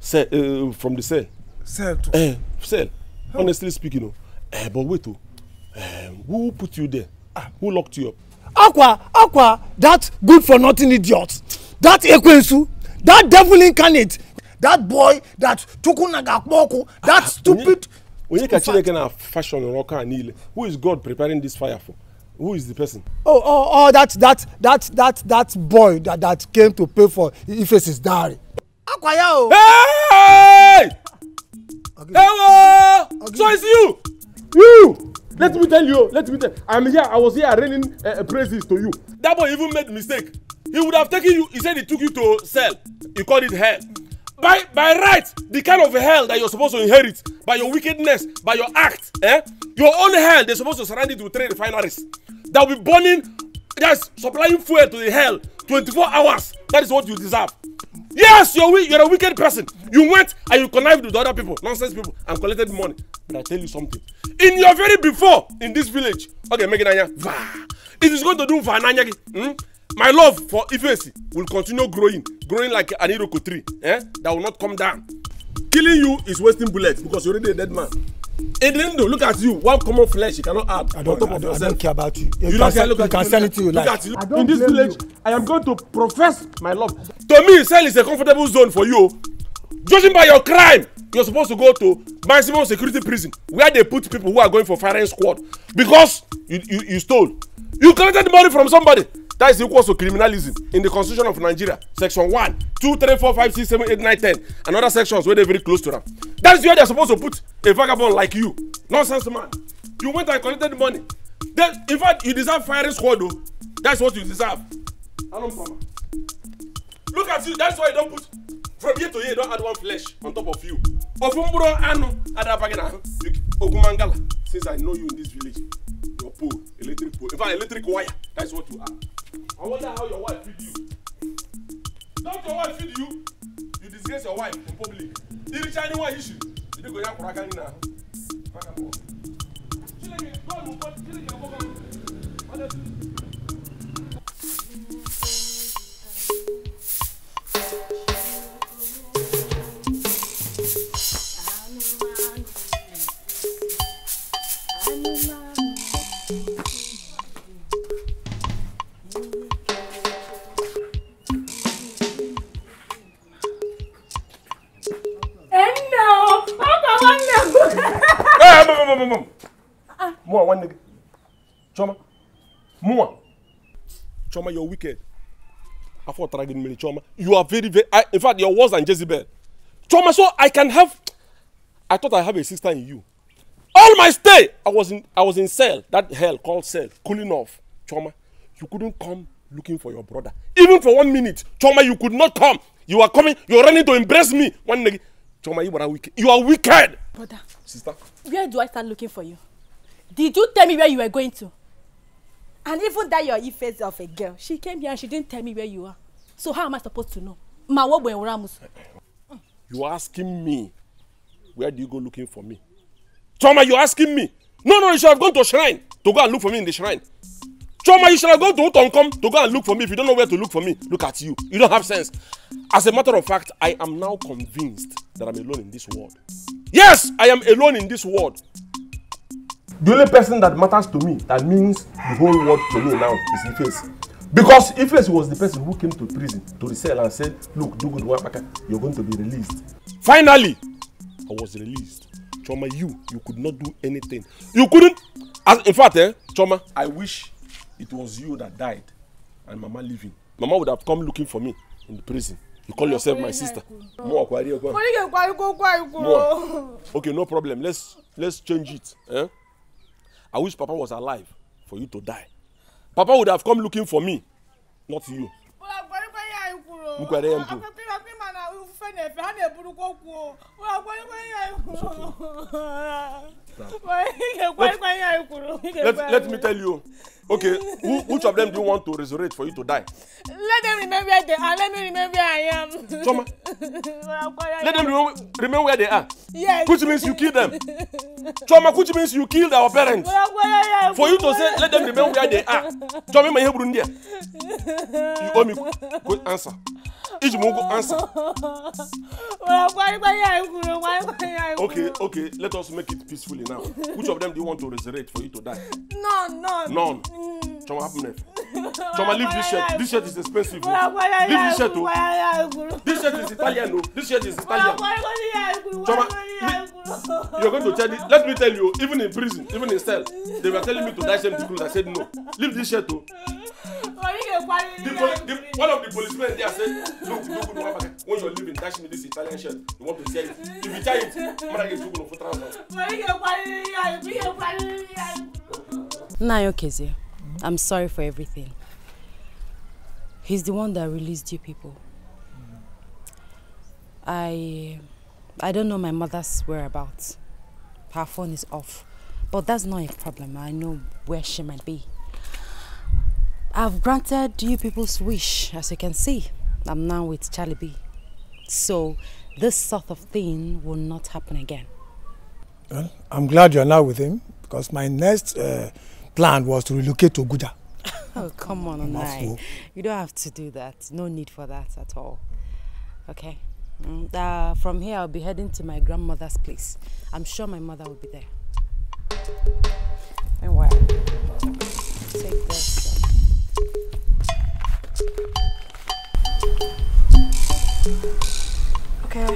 F: cell uh, from the cell. cell too. Uh, cell oh. honestly speaking o uh,
B: eh, but wait o uh, eh, who put you there ah. who locked you up. akwa akwa that good for nothing idiot that ekwensu that devil incarnate that boy that tukunaga kpoku that ah, ah, stupid. onye ka chineke na
F: fashion ọrụ ọka niile who is god preparing this fire for who is the person.
B: oh oh oh that that that that that boy that that came to pay for Ife's dowry.
C: akwaya
F: o. hey! ewo so it's you. you let me tell you let me tell i'm here i was here raining uh, eh, eh, praises to you. that boy even made mistake he would have taken you he said he took you to sell he called it hell by by right the kind of hell that you're supposed to inherit by your wickedness by your act eh your own hell they're supposed to surround it with three refineries that will be burning that's supplying fuel to the hell 24 hours that is what you deserve yes you're you're a wicked person you went and you connived with other people nonsense people and collected money but i tell you something in your very before in this village okay meginanya va it is going to do for ananyagi hmm? My love for Ifeanyi will continue growing, growing like an iroko tree eh? that will not come down. Killing you is wasting bullets because you're already a dead man. Edendo, look at you. One common flesh you cannot add I don't, on top of yourself. I
G: don't care about you. You,
F: you don't care. Look you can sell it to you. Look like. you. In this village, you. I am going to profess my love. To me, cell is a comfortable zone for you. Judging by your crime, you're supposed to go to maximum security prison where they put people who are going for firing squad because you, you, you stole. You collected money from somebody. That is equal to criminalism in the constitution of Nigeria, section One, Two, Three, Four, Five, Six, Seven, Eight, Nine, Ten, and other sections where they're very close to them. That is where they're supposed to put a vagabond like you. Nonsense man. You went and collected money. Then, in fact, you deserve firing squad though. That's what you deserve. Look at you, that's why you don't put from here to here don't add one flesh on top of you ofu mkpụrụ anụ adabaghị n'ahụ ogumangala since i know you in this village your pool, electric pool, in fact electric wire that's what you are i wonder how your wife feed you don't your wife feed you you disgrace your wife in public iricha anywa issue ndị go ya kwụrụ aka gị n'ahụ maka mbọ chineke god will call chineke abụghị honestly moom moom. mu wa wan cooma mu wa cooma you're wicked after dragging me Choma. you are very very I, in fact you're worse than Jezebel Choma, so I can have I thought I have a sister in you all my stay I was in I was in cell that hell called cell cooling off Choma, you couldn't come looking for your brother even for one minute Choma, you could not come you are coming you were running to embrace me one nigga Choma, you are wicked. You are wicked. Brother. Sister.
A: Where do I start looking for you? Did you tell me where you were going to? And even that your face of a girl, she came here and she didn't tell me where you are. So how am I supposed to know? Ma wo gbe Ramus.
F: You are asking me where do you go looking for me? Choma, you are asking me. No, no, you should have gone to shrine to go and look for me in the shrine. Choma, you shall go to come to go and look for me. If you don't know where to look for me, look at you. You don't have sense. As a matter of fact, I am now convinced that I'm alone in this world. Yes, I am alone in this world. The only person that matters to me, that means the whole world to me now, is Iface. Because Iface was the person who came to prison to resell and said, look, do good work, you're going to be released. Finally, I was released. Choma, you, you could not do anything. You couldn't, as, in fact, eh, Choma, I wish it was you that died and mama living mama would have come looking for me in the prison you call yourself my sister mo wa kwari okwa mo ni
D: ke kwari ko kwari ko
F: okay no problem let's let's change it eh? i wish papa was alive for you to die papa would have come looking for me not you
D: mo kwari ya
C: ikuro let, let me
F: tell you. Okay, who, which of them do you want to resurrect for you to die?
A: Let them remember where they are. Let me remember where I am. Choma.
F: let them remember, remember where they are. Yes. Which means you kill them. Choma, which means you killed our parents.
C: for you to say, let them remember where they are. Choma, my Hebrew India. You owe me
F: good answer. Each mongo answer. okay, okay, let us make it peacefully you now. Which of them do you want to resurrect for you to die?
C: None, none. None.
F: Mm. Choma, happen next.
C: Choma, leave this shirt. This
F: shirt is expensive. Leave this shirt. too. This shirt is Italian. no? This shirt is Italian.
C: Choma, you're going to tell
F: me. Let me tell you, even in prison, even in cell, they were telling me to die. same clothes. I said no. Leave this shirt. too. the, the, one of the policemen there said look look look one when you leave in dash me this italian shirt you want to sell it if you tell it mara get two for transfer.
A: Nayo Keze, I'm sorry for everything. He's the one that released you people. I I don't know my mother's whereabouts. Her phone is off. But that's not a problem. I know where she might be. I've granted you people's wish, as you can see. I'm now with Charlie B. So this sort of thing will not happen again.
B: Well, I'm glad you're now with him because my next uh, plan was to relocate to Guja.
A: oh, come on, Onai. You don't have to do that. No need for that at all. Okay? Mm, uh, from here, I'll be heading to my grandmother's place. I'm sure my mother will be there. Anyway, take this. Okay.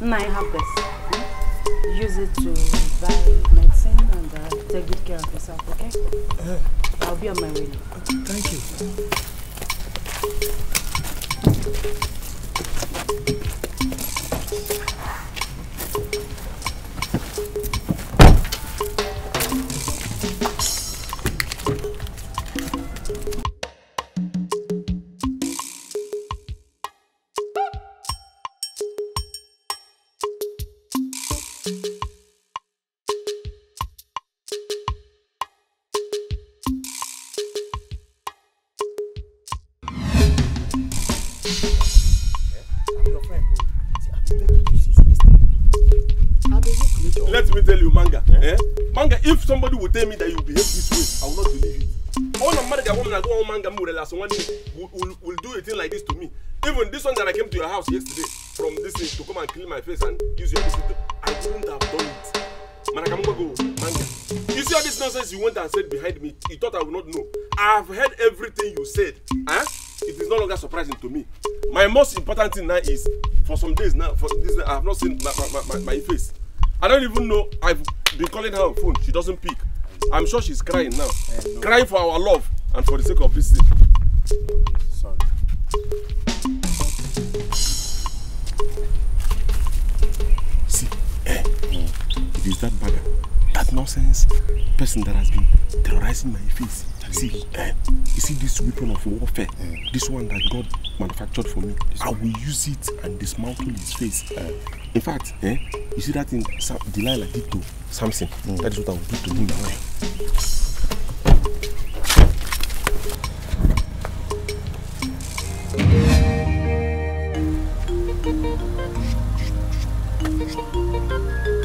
A: Now you have this. Hmm? Use it to buy medicine and uh, take good care of yourself, okay? Uh, I'll be on my way now. Thank you.
F: manga, if somebody would tell me that you behave this way, I will not believe it. All the marriage woman I go one manga will last one will, will, will do a thing like this to me. Even this one that I came to your house yesterday from this thing to come and clean my face and use your visit, I couldn't have done it. Manakamanga go manga. You see all this nonsense you went and said behind me, you thought I would not know. I have heard everything you said. Huh? Eh? It is no longer surprising to me. My most important thing now is, for some days now, for this, I have not seen my, my, my, my face. I don't even know. I've been calling her on phone. She doesn't pick. I'm sure she's crying now. No. Crying for our love and for the sake of this thing. Sorry. See, eh, it is that bugger, that nonsense person that has been terrorizing my face. See, eh, you see this weapon of warfare, mm. this one that God manufactured for me, this I will use it and dismantle his face. Eh. in fact, eh, you see that in Sam Delilah did to Samson, mm. that is what I will do to him now. Thank
A: you.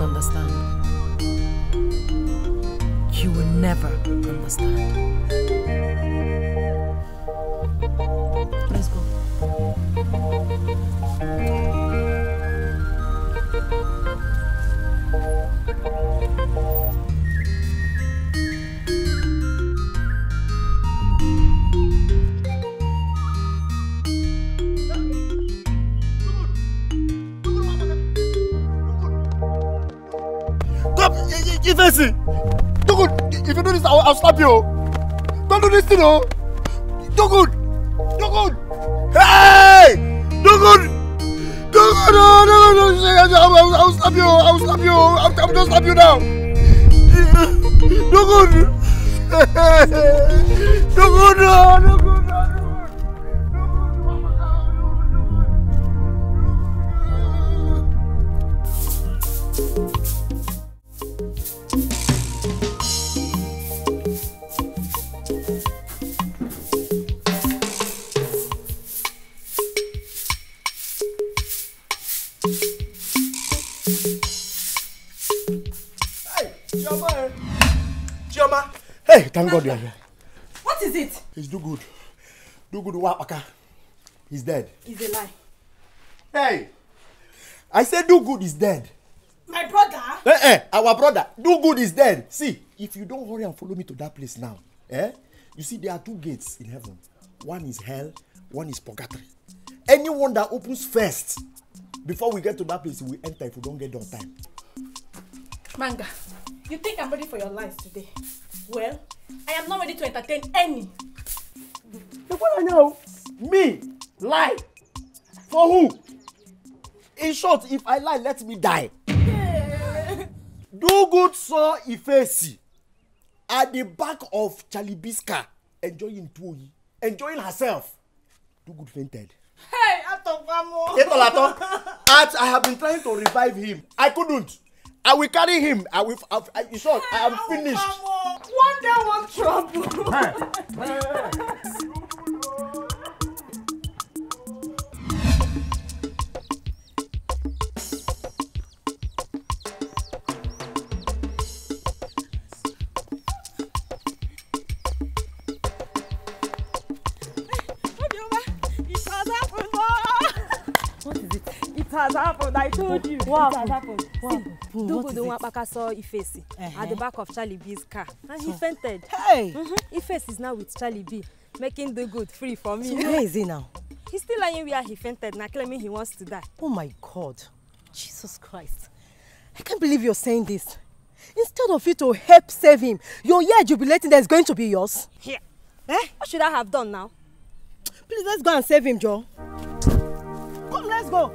A: understand. You will never understand.
C: Let's go. Thank you.
B: face it. Dogun, if you do this, I'll, I'll slap you. Don't do this thing, oh. Dogun, Dogun. Hey, Dogun. Dogun, no, no, no, no. I'll, I'll slap you. I'll slap you. I'm, I'm gonna slap you now.
C: Dogun. Dogun, no, Dogun.
B: Thank God you here. What is it? It's do good. Do good Wapaka. He's dead. It's a lie. Hey! I said do good is dead. My brother? Eh eh, our brother. Do good is dead. See, if you don't hurry and follow me to that place now, eh? You see, there are two gates in heaven. One is hell, one is purgatory. Anyone that opens first, before we get to that place, we enter if we don't get there on time.
A: Manga, you think I'm ready for your lies today? Well, I am not ready to entertain any.
B: The one I know, me, lie. For who? In short, if I lie, let me die. Yeah. Do good so Ifesi at the back of Chalibiska enjoying Tuoyi, enjoying herself. Do good fainted.
A: Hey, Atokamo! Etolatọ,
B: at I have been trying to revive him. I couldn't. I will carry him. I will. I, I, in short, I am finished. One day, one trouble.
A: has happened. I told you. What happened? happened. What happened? See, Dugudu Nwapaka saw Ifesi at the back of Charlie B's car and he fainted. Hey! mm Ifesi is now with Charlie B, making Dugudu free for me. So where is he now? He's still lying where he fainted now, claiming he wants to die. Oh my God. Jesus Christ. I can't believe you're saying this. Instead of you to help save him, your year jubilating that is going to be yours. Here. Yeah. Eh? What should I have done now? Please, let's go and save him, Joe. Come, let's
C: go.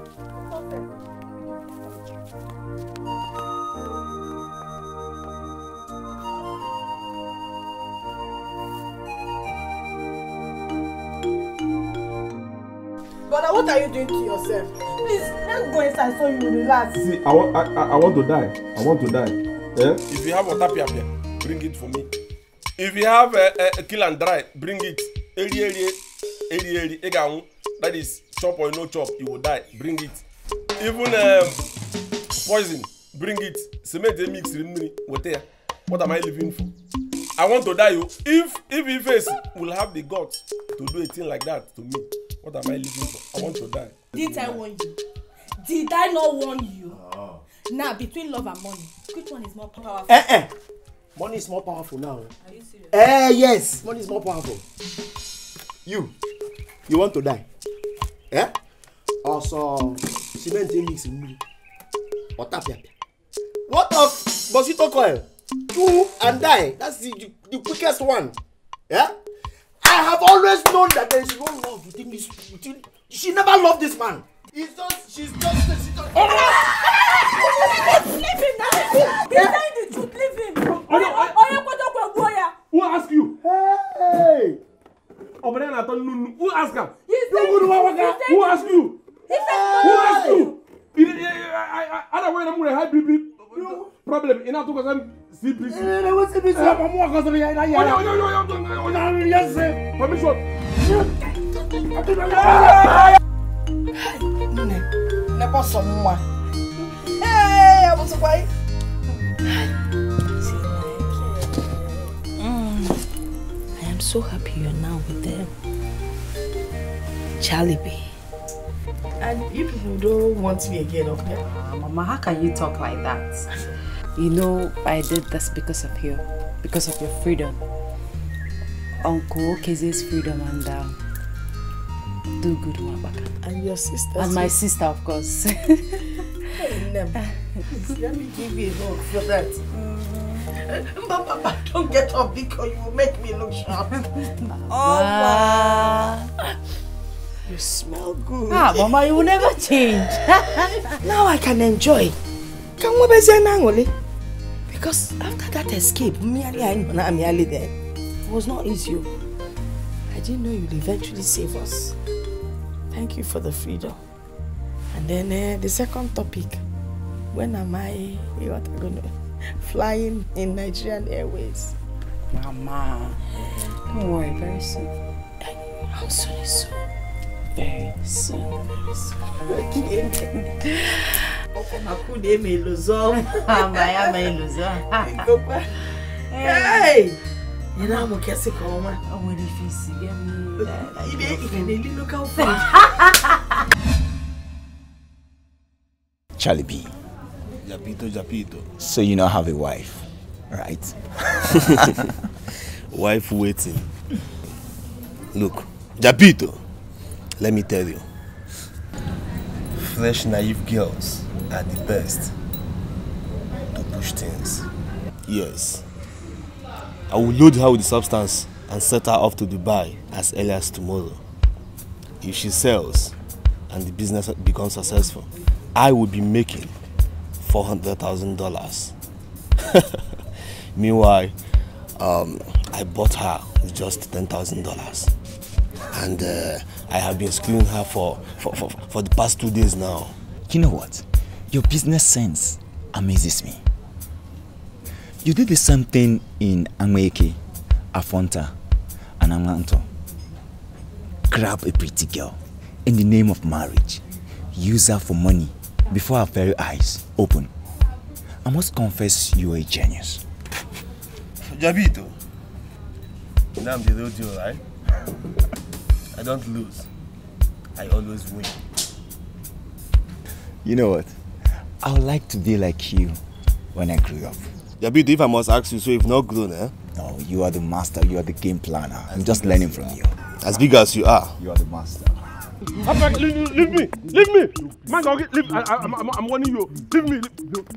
D: Brother, what are you doing to yourself? Please, let's go inside so you relax.
F: See, I want, I, I, I want to die. I want to die. Yeah. If you have water piapia, bring it for me. If you have a uh, eh, uh, eh, kill and dry, bring it. Eri eri eri eri eganwu. That is chop or no chop, you will die. Bring it. Even um, poison, bring it. Cement mix remini. What there? What am I living for? I want to die. You. Oh. If if face will have the guts to do a thing like that to me. What am I living for? I want to die.
A: Did I warn you? Did I not warn you? Oh. Now, nah, between love and money, which one is more
C: powerful?
B: Eh, eh. Money is more powerful now. Are you serious? Eh, yes. Money is more powerful. You, you want to die? Eh? Also, cement mix in me. Water pepper. What of mosquito coil? Two and die. That's the, the, the quickest one. Yeah? I have always known that there is no love within this within she never loved this man. It's
H: just she's just
B: she's just. Oh, no.
H: Leave him
F: Who ask you? Hey. Obere na nunu. Who ask am? Dogo no waka. Who ask you? Who ask you? Ada wey na mu re high bp problem. Ina to ko say. CBC. Eh, we eh,
A: mm. I am so happy you are now with them. Charlie B. And you people don't want me again, okay? Uh, Mama, how can you talk like that? you know I did this because of you, because of your freedom. Uncle Okeze's freedom and uh, do good one And your sister. And my sister, of course. let me give you a hug for that. Mm. don't get up because you will make me look sharp. Oh, You smell
C: good. Ah, Mama,
A: you will never change. now I can enjoy. Can we be because after that escape, merely I and merely then it was not easy. Oh. I didn't know you'd eventually save us. Thank you for the freedom. And then uh, the second topic, when am I, what i gonna, flying in Nigerian Airways? Mama, don't worry, very soon. I'm sorry, soon. very
C: soon, very soon.
H: Makundi é minha ilusão. Amai Ei! E não, mo quer kwa uma. Oh, ele fez E Ele ele nunca o fez.
G: Charlie B.
F: Japito, Japito.
G: So you now have a wife, right? wife waiting.
B: Look, Japito. Let me tell you. Fresh, naive girls are the best to push things. Yes. I will load her with the substance and set her off to Dubai as early as tomorrow. If she sells and the business becomes successful, I will be making $400,000. Meanwhile, um, I bought her with just $10,000. And uh, I have been screwing her for, for, for, for the past two days
G: now. You know what? Your business sense amazes me. You did the same thing in Angweke, Afonta, and Angwanto. Grab a pretty girl in the name of marriage, use her for money before her very eyes open. I must confess you are a genius.
B: Jabito, now I'm the real deal, right? I don't lose. I always win.
G: You know what? I would like to be like you when I grew up. Yabido, if I must ask you, so you've not grown, eh? No, you are the master, you are the game planner. As I'm just learning from you. As big as you are. You are the master.
F: I leave, leave me, leave me. Man, okay, leave. I, I, I'm, I'm warning you. Leave me. Leave.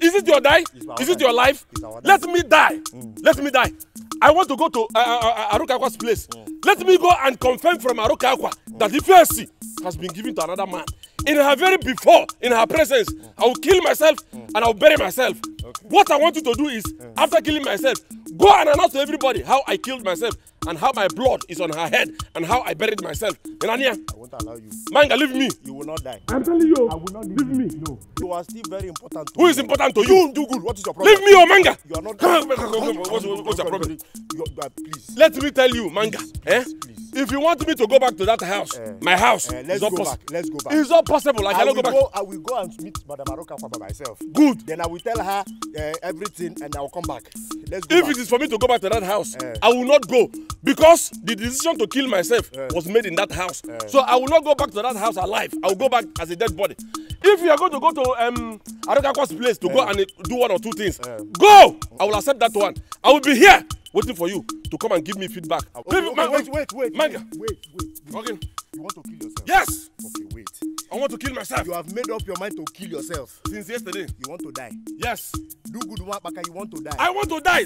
F: Is it your die? Is it your life? Let me die. Let me die. I want to go to uh, uh, uh Aruka Akwa's place. Let me go and confirm from Aruka Akwa that the PSC has been given to another man. In her very before, in her presence, I will kill myself and I will bury myself. Okay. What I want you to do is, after killing myself, go and announce to everybody how I killed myself and how my blood is on her head and how I buried myself. Irania, I
B: won't allow you. Manga, leave me. You will not die. I'm telling you.
F: I will not leave, me. No.
B: You are still very important to Who me. is important to you? Do good. What is your problem? Leave me, oh Manga. You are not. Come, come, come, come. What's, what's your problem? You
F: are, please. Let me tell you, Manga. Please, eh? please. If you want me to go back to that house, uh, my house, uh, let's go back. Let's go back. It's not possible. I, I cannot go back. Go, I will
B: go and meet Madame Aroka by myself. Good. Then I will tell her uh, everything and I will come back. Let's go. If
F: back. it is for me to go back to that house, uh, I will not go because the decision to kill myself yeah. was made in that house. Yeah. So I will not go back to that house alive. I will go back as a dead body. If you are going to go to um, Arokako's place to yeah. go and uh, do one or two things, yeah. go! I will accept that one. I will be here waiting for you to come and give me feedback. Okay, People, okay, man,
B: wait, wait, wait, manga. wait, wait, wait. Okay. You want to kill yourself? Yes! Okay, wait. I want to kill myself. You have made up your mind to kill yourself. Since yesterday. You want to die. Yes. Do good work, Baka. You want to die. I want to die.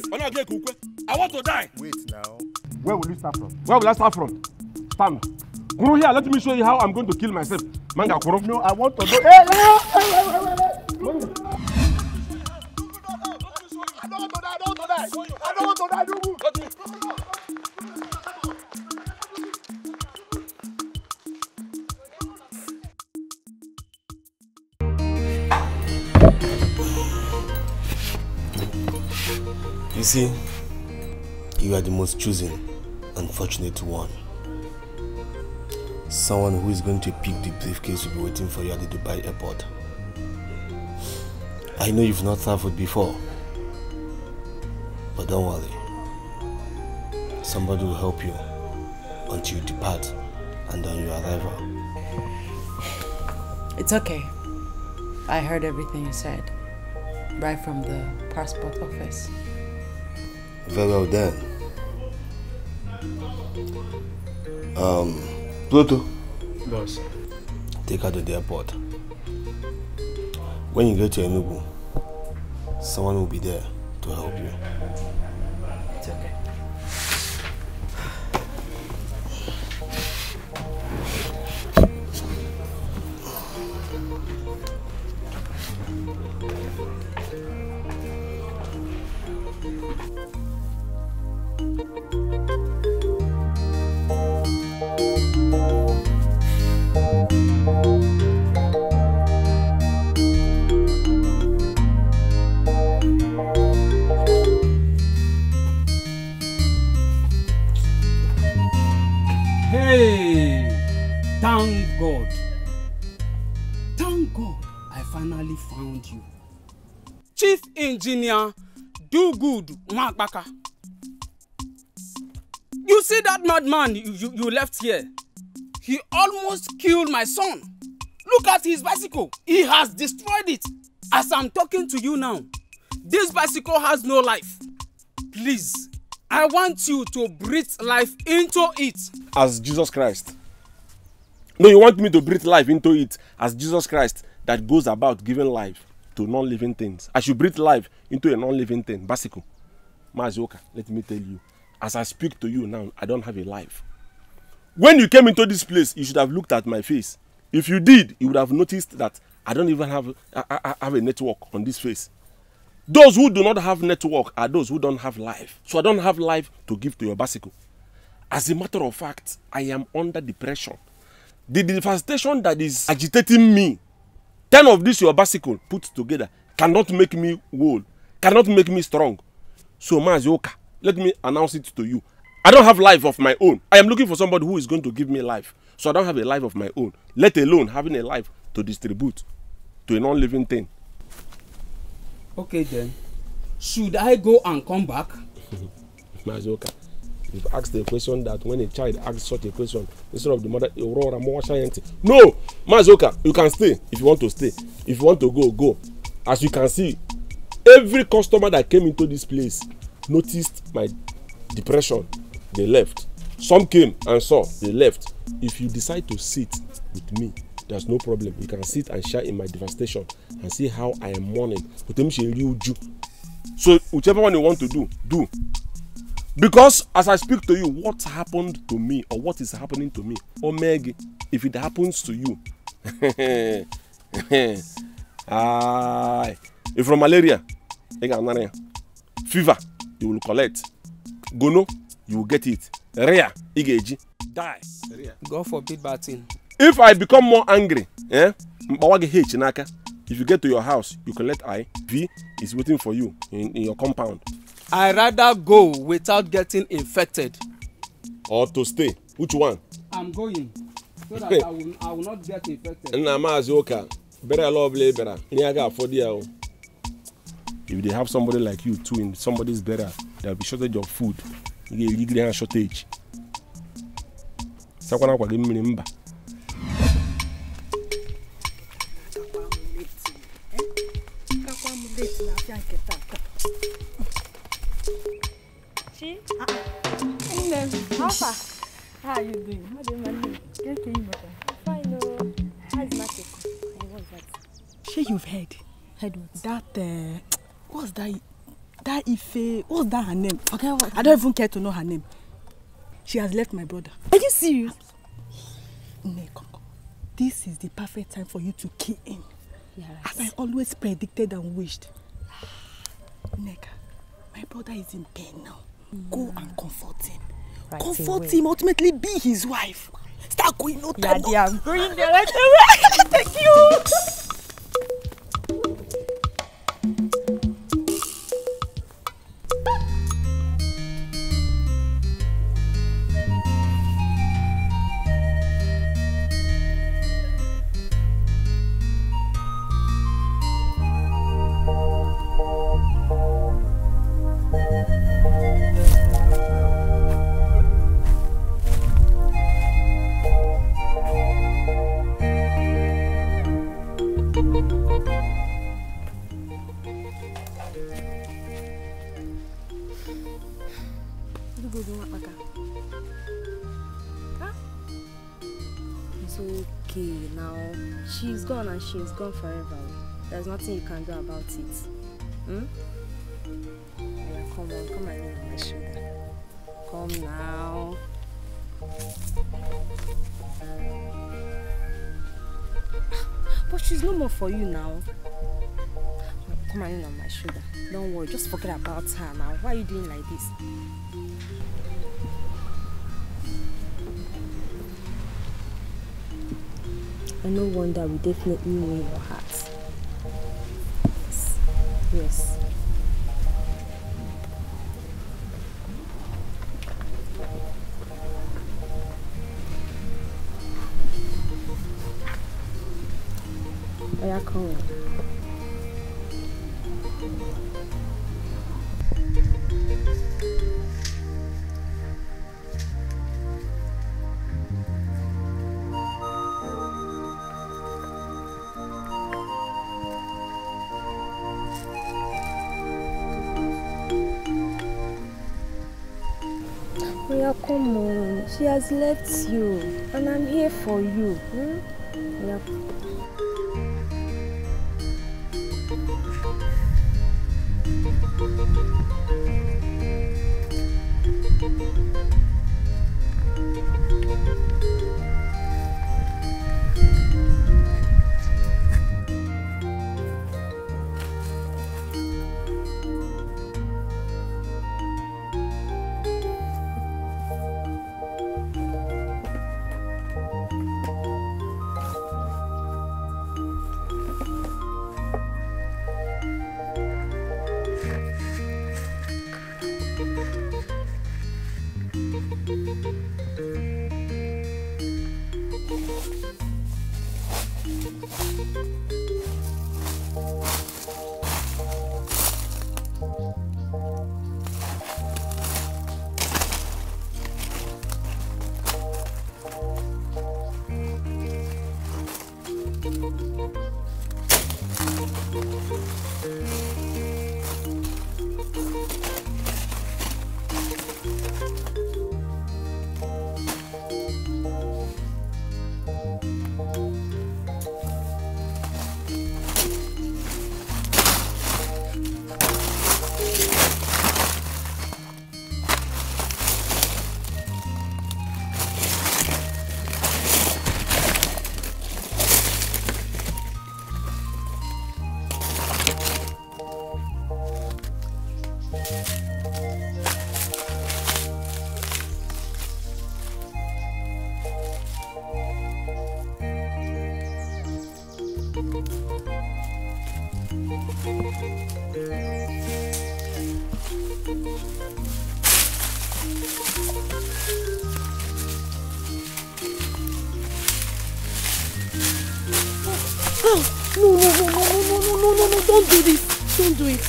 B: I want to die. Wait now.
F: Where will you start from? Where will I start from? Stand. Kuru here, let me show you how I'm going to kill myself. Manga Kuru. No, I want to know. Hey,
D: hey, hey, hey, hey, hey. I do
B: You see, you are the most choosing. unfortunate one. Someone who is going to pick the briefcase will be waiting for you at the Dubai airport. I know you've not traveled before, but don't worry. Somebody will help you until you depart and on your arrival.
A: It's okay. I heard everything you said right from the passport office.
B: Very well then. Um, Pluto. Boss. Take her to the airport. When you get to Enugu, someone will be there to help you.
D: Odudu Nwankpaka. You see that madman you, you, you left here? He almost killed my son. Look at his bicycle. He has destroyed it. As I'm talking to you now, this bicycle has no life. Please, I want you to breathe life into it.
F: As Jesus Christ. No, you want me to breathe life into it as Jesus Christ that goes about giving life to non-living things. I should breathe life into a non-living thing, bicycle. Mazioka, let me tell you, as I speak to you now, I don't have a life. When you came into this place, you should have looked at my face. If you did, you would have noticed that I don't even have, I, I have a network on this face. Those who do not have network are those who don't have life. So I don't have life to give to your bicycle. As a matter of fact, I am under depression. The devastation that is agitating me, 10 of this your bicycle put together, cannot make me whole, cannot make me strong. So, Mazioka, let me announce it to you. I don't have life of my own. I am looking for somebody who is going to give me life. So I don't have a life of my own, let alone having a life to distribute to a non-living thing.
D: Okay then, should I go and come back?
F: Mazioka, you've asked a question that when a child asks such a question, instead of the mother, Aurora, more science. No, Mazioka, you can stay if you want to stay. If you want to go, go. As you can see, every customer that came into this place noticed my depression they left some came and saw they left if you decide to sit with me there's no problem you can sit and share in my devastation and see how i am mourning otemse eri oju so whichever one you want to do do because as i speak to you what happened to me or what is happening to me omeg if it happens to you ah If from malaria, you can malaria. Fever, you will collect. Gono, you will get it. Rare, you get
D: Die. Rare. God forbid bad thing.
F: If I become more angry, eh? Mbawagi H naka. If you get to your house, you collect I. B is waiting for you in, in your compound.
D: I rather go without getting
F: infected. Or to stay. Which one?
D: I'm going. So that I will, I will not get infected.
F: Nna maazi ụka bere ala ọbụla ị bịara ihe a ga-afọdụ ya o. If they have somebody like you too in somebody's better, there'll be shortage of food. You get a and shortage. Sakwana kwa game remember.
A: Ah. How How are you doing? How do you doing? Get in better. Fine, oh. How's
C: Matiko? What's that?
A: Sure, you've heard. Heard what? That uh, what's that that Ife what's that her name okay, what? I don't even care to know her name she has left my brother are you serious Nne this is the perfect time for you to kill him yeah, as I always predicted and wished Nneka my brother is in pain now mm. go and comfort him
C: right comfort him
A: ultimately be his wife start going no time yeah, no
C: yeah I'm right away thank you
A: gone forever. There's nothing you can do about it.
C: Hmm? Yeah, come on, come and lean on my shoulder. Come now.
A: But she's no more for you now. Come and lean on my shoulder. Don't worry, just forget about her now. Why are you doing like this? and no wonder we definitely win your hearts. Yes. yes. I come. has left you and I'm here for you. Hmm? Yep.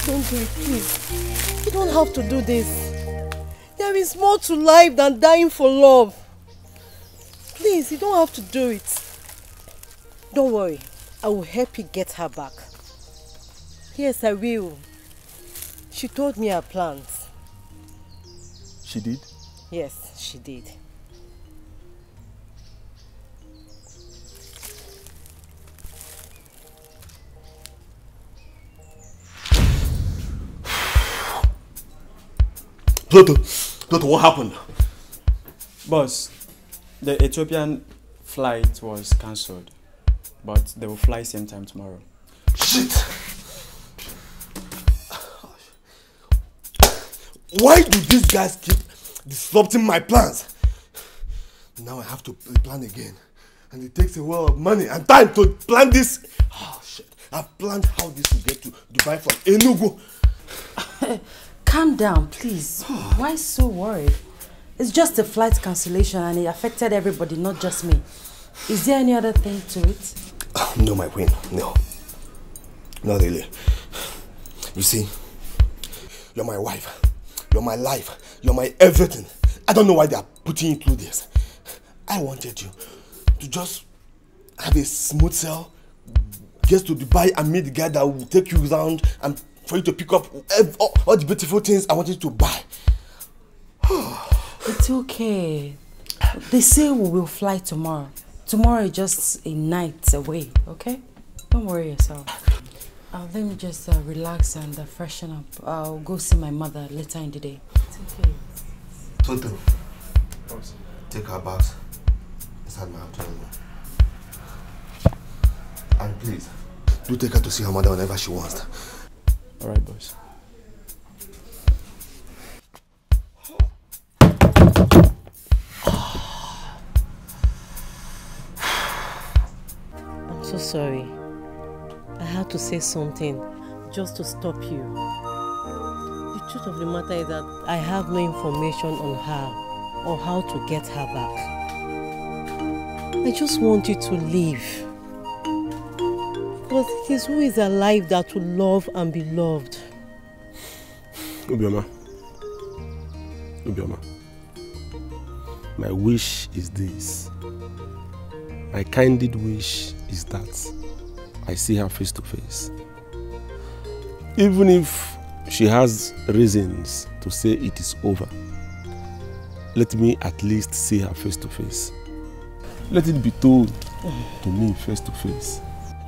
A: Don't do it, please. You don't have to do this. There is more to life than dying for love. Please, you don't have to do it. Don't worry. I will help you get her back. Yes, I will. She told me her plans. She did? Yes, she did.
B: Toto, what happened?
E: Boss, the Ethiopian flight was cancelled, but they will fly same time tomorrow. Shit!
B: Why do these guys keep disrupting my plans? Now I have to plan again. And it takes a lot of money and time to plan this. Oh shit. I've planned how this will get to Dubai from Enugu. Calm down, please. Why so worried?
A: It's just a flight cancellation and it affected everybody, not just me. Is there any other thing
B: to it? no, my queen, no. Not really. You see, you're my wife. You're my life. You're my everything. I don't know why they are putting you through this. I wanted you to just have a smooth sail, get to Dubai and meet the guy that will take you around and for you to pick up all, all the beautiful things I wanted to buy.
A: it's okay. They say we will fly tomorrow. Tomorrow is just a night away, okay? Don't worry yourself. Uh, let me just uh, relax and uh, freshen up. I'll go see my mother later in the day. It's okay.
G: Tonto,
B: take her bags inside my abdomen. And please, do take her to see her mother whenever she wants. All right, boys.
A: I'm so sorry. I had to say something just to stop you. The truth of the matter is that I have no information on her or how to get her back. I just want you to leave. Because it is who is alive that will love and be loved.
F: Obioma. Obioma. My wish is this. My candid wish is that I see her face to face. Even if she has reasons to say it is over, let me at least see her face to face. Let it be told to me face to face.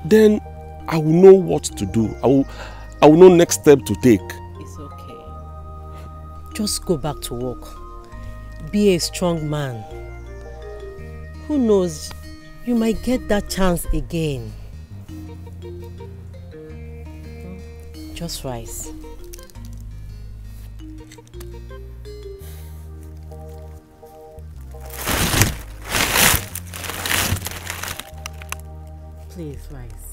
F: Then I will know what to do. I will, I will know next step to take. It's okay.
A: Just go back to work. Be a strong man. Who knows, you might get that chance again. Just rise. Please rise.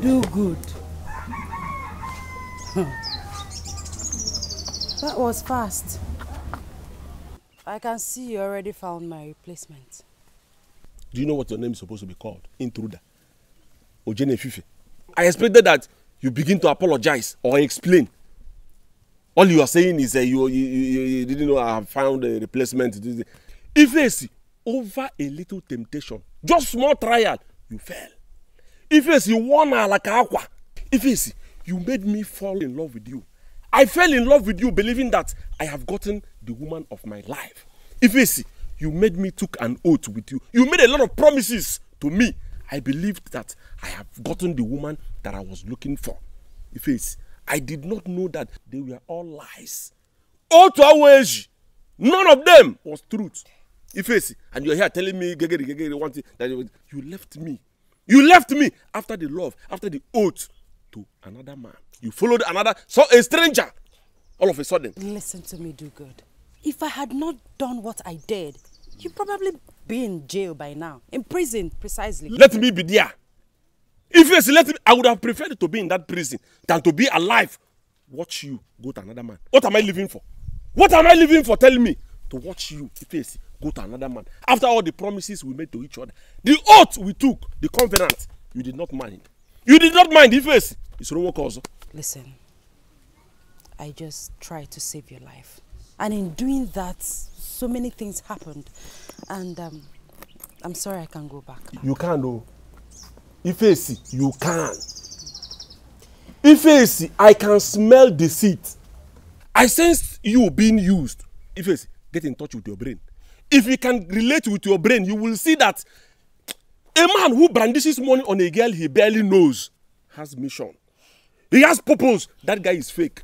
A: Do good. that was fast. I can see you already found my replacement.
F: Do you know what your name is supposed to be called? Intruder. Ojene Fife. I expected that you begin to apologize or explain all you are saying is uh, you, you, you you didn't know i found a replacement ifeesi over a little temptation just small trial you fell ifeesi won alaka akwa ifeesi you made me fall in love with you i fell in love with you believing that i have gotten the woman of my life ifeesi you made me took an oath with you you made a lot of promises to me I believed that I have gotten the woman that I was looking for. If it's, I did not know that they were all lies. All to our age, none of them was truth. If it's, and you're here telling me, gegeri, gegeri, one thing, that you left me. You left me after the love, after the oath to another man. You followed another, so a stranger, all of a sudden.
A: Listen to me, do good. If I had not done what I did, you probably be in jail by now, in prison precisely. Let me
F: be there. If yes, let me, I would have preferred to be in that prison than to be alive. Watch you go to another man. What am I living for? What am I living for? Tell me. To watch you, if yes, go to another man. After all the promises we made to each other, the oath we took, the covenant, you did not mind. You did not mind, if yes, it's wrong also. Listen,
A: I just tried to save your life. And in doing that, so many things happened, and um, I'm sorry I can't go back.
F: You can O oh. Ifeesi, you can. Ifeesi, I can smell deceit. I sense you being used. Ifeesi, get in touch with your brain. If you can relate with your brain, you will see that a man who brandishes money on a girl he barely knows has mission. He has purpose. That guy is fake.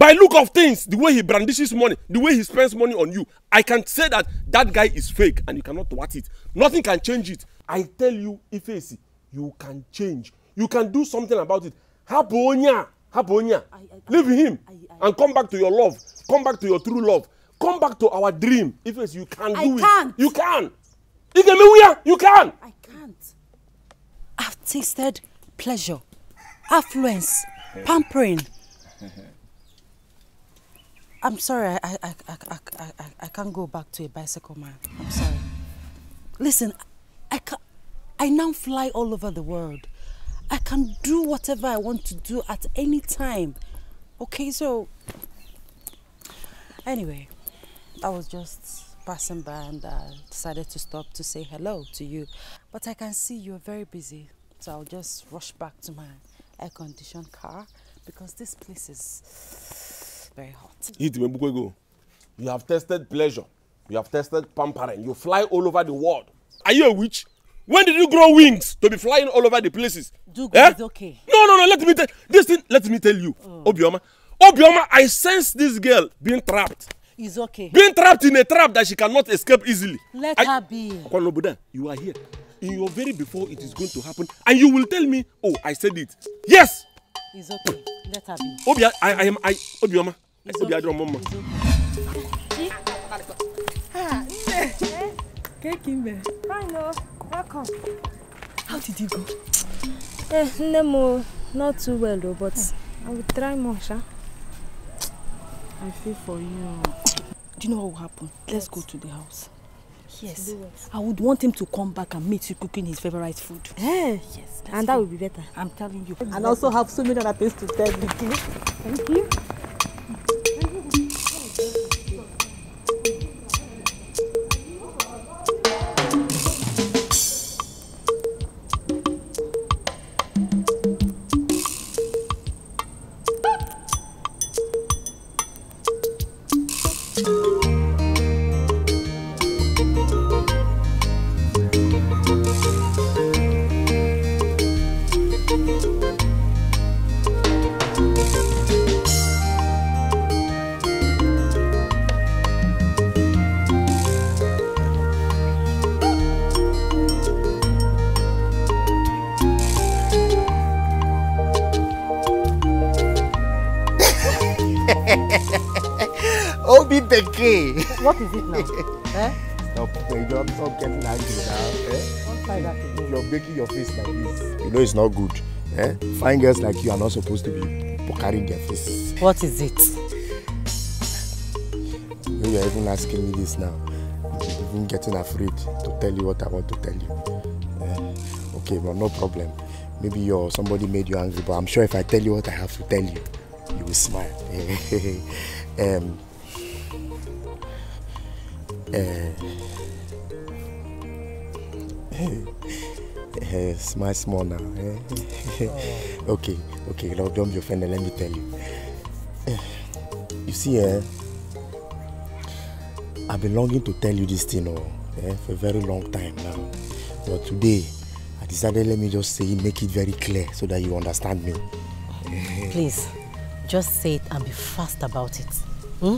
F: By look of things, the way he brandishes money, the way he spends money on you, I can say that that guy is fake and you cannot watch it. Nothing can change it. I tell you, Ifeisi, you can change. You can do something about it. Habonya, Habonya, leave him I, I, and come back to your love. Come back to your true love. Come back to our dream. Ifeisi, you can
A: do I You Can't. You can. you can. I can't. I've tasted pleasure, affluence, pampering. I'm sorry, I, I, I, I, I, can't go back to a bicycle man. I'm sorry. Listen, I, can I now fly all over the world. I can do whatever I want to do at any time. Okay, so... Anyway, I was just passing by and I decided to stop to say hello to you. But I can see you're very busy, so I'll just rush back to my air-conditioned car because this place is very hot.
F: Eat Mebukwego. You have tested pleasure. You have tested pampering. You fly all over the world. Are you a witch? When did you grow wings to be flying all over the places? Dugo eh? is okay. No, no, no. Let me tell this thing. Let me tell you, oh. Obioma. Obioma, I sense this girl being trapped.
A: It's okay. Being trapped
F: in a trap that she cannot escape easily. Let I, her be. Kwanobuda, you are here. In your very before it is going to happen, and you will tell me, oh, I said it. Yes,
A: Obi, okay. Let her be.
F: Obia, I, I am, I, Obioma. Obia, drum mama.
A: Ah, Cake Fine, no. Welcome. How did you go? Eh, Nemo, not too well though, but hmm. I will try more, sha. I feel for you. Do you know what will happen? Let's go to the house. Yes. I would want him to come back and meet you cooking his favorite food. Eh? Yes. yes and that would be better. I'm telling you. And also have so many other things to tell you. Thank you.
B: is it now? eh? Stop, stop, stop getting angry now. Eh? Don't try that again. You're making your face like this. You know it's not good. Eh? Fine girls like you are not supposed to be pokering their faces. What is it? When you're even asking me this now, I'm even getting afraid to tell you what I want to tell you. Eh? Okay, but no problem. Maybe you're somebody made you angry, but I'm sure if I tell you what I have to tell you, you will smile. Eh, um, Uh, smile small now. Eh? okay, okay, Lord, don't be offended. Let me tell you. Eh, you see, eh, I've been longing to tell you this thing oh, eh, for a very long time now. But today, I decided let me just say make it very clear so that you understand me. Please,
A: just say it and be fast about it. Hmm?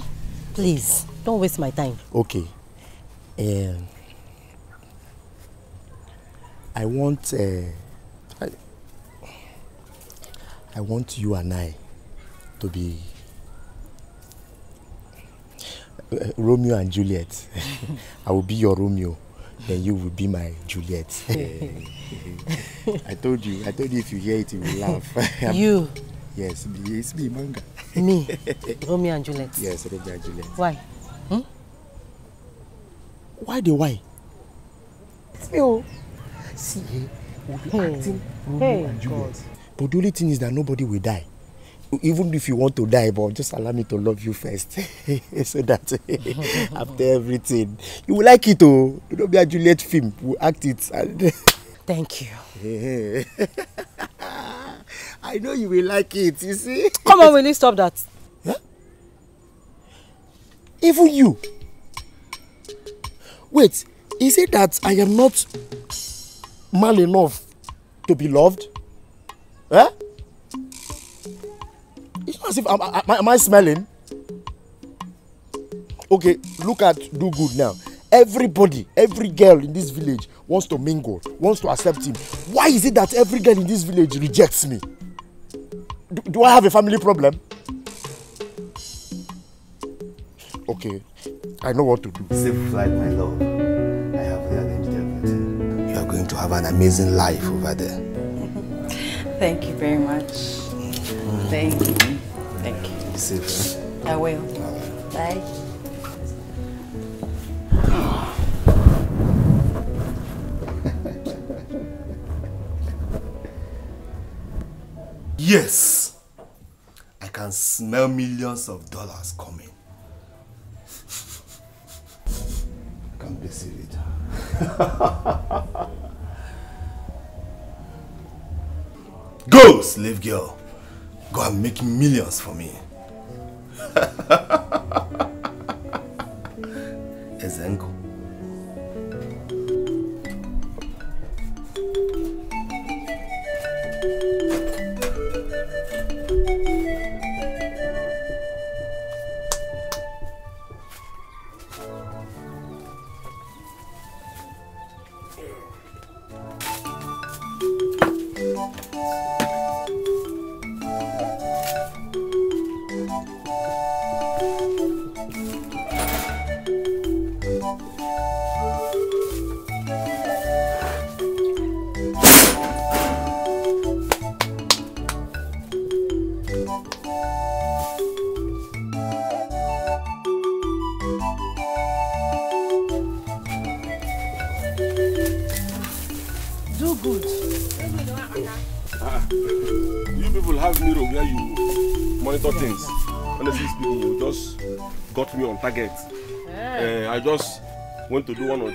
A: Please, don't waste my time.
B: Okay, Uh, I want uh, I, I want you and I to be uh, Romeo and Juliet. I will be your Romeo, and you will be my Juliet. I told you, I told you if you hear it, you will laugh. you? Yes, it's me, manga. me, Romeo and Juliet. Yes, Romeo and Juliet. Why? why the why. see o see eh we be hmm. hey. acting Romeo hey, and Juliet but the only thing is that nobody will die even if you want to die but just allow me to love you first so that after everything you will like it o oh. Romeo and Juliet film we act it and. thank you. I know you will like it, you see. Come on, will you stop that? Huh? Even you, Wait, is it that I am not man enough to be loved? Eh? It's not as if I'm, am, am I smelling? Okay, look at do good now. Everybody, every girl in this village wants to mingle, wants to accept him. Why is it that every girl in this village rejects me? Do, do I have a family problem? Okay, I know what to do. Safe flight, my love. I have rearranged everything. You are going to have an amazing life over there.
A: Thank you very much. Mm. Thank you. Thank you. Be safe. Eh? I will. Bye.
B: yes, I can smell millions of dollars coming. Blessirita. Go, slave girl. Go and make millions for me. Ezenko.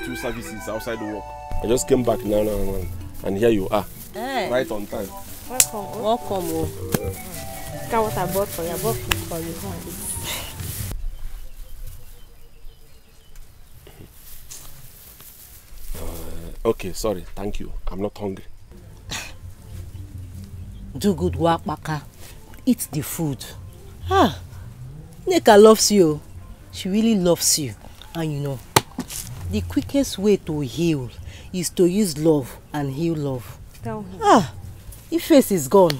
F: two services outside the work. I just came back now, now, now and here you are. Hey. Eh. Right on time. Welcome. Oh. Welcome.
A: Oh. Mm. Uh, Look at what I bought for you. I bought food for you. Go
F: Okay, sorry. Thank you. I'm not hungry.
A: Do good work, Maka. Eat the food. Ah, Neka loves you. She really loves you. And you know, the quickest way to heal is to use love and heal love. Tell him. Ah, if face is gone,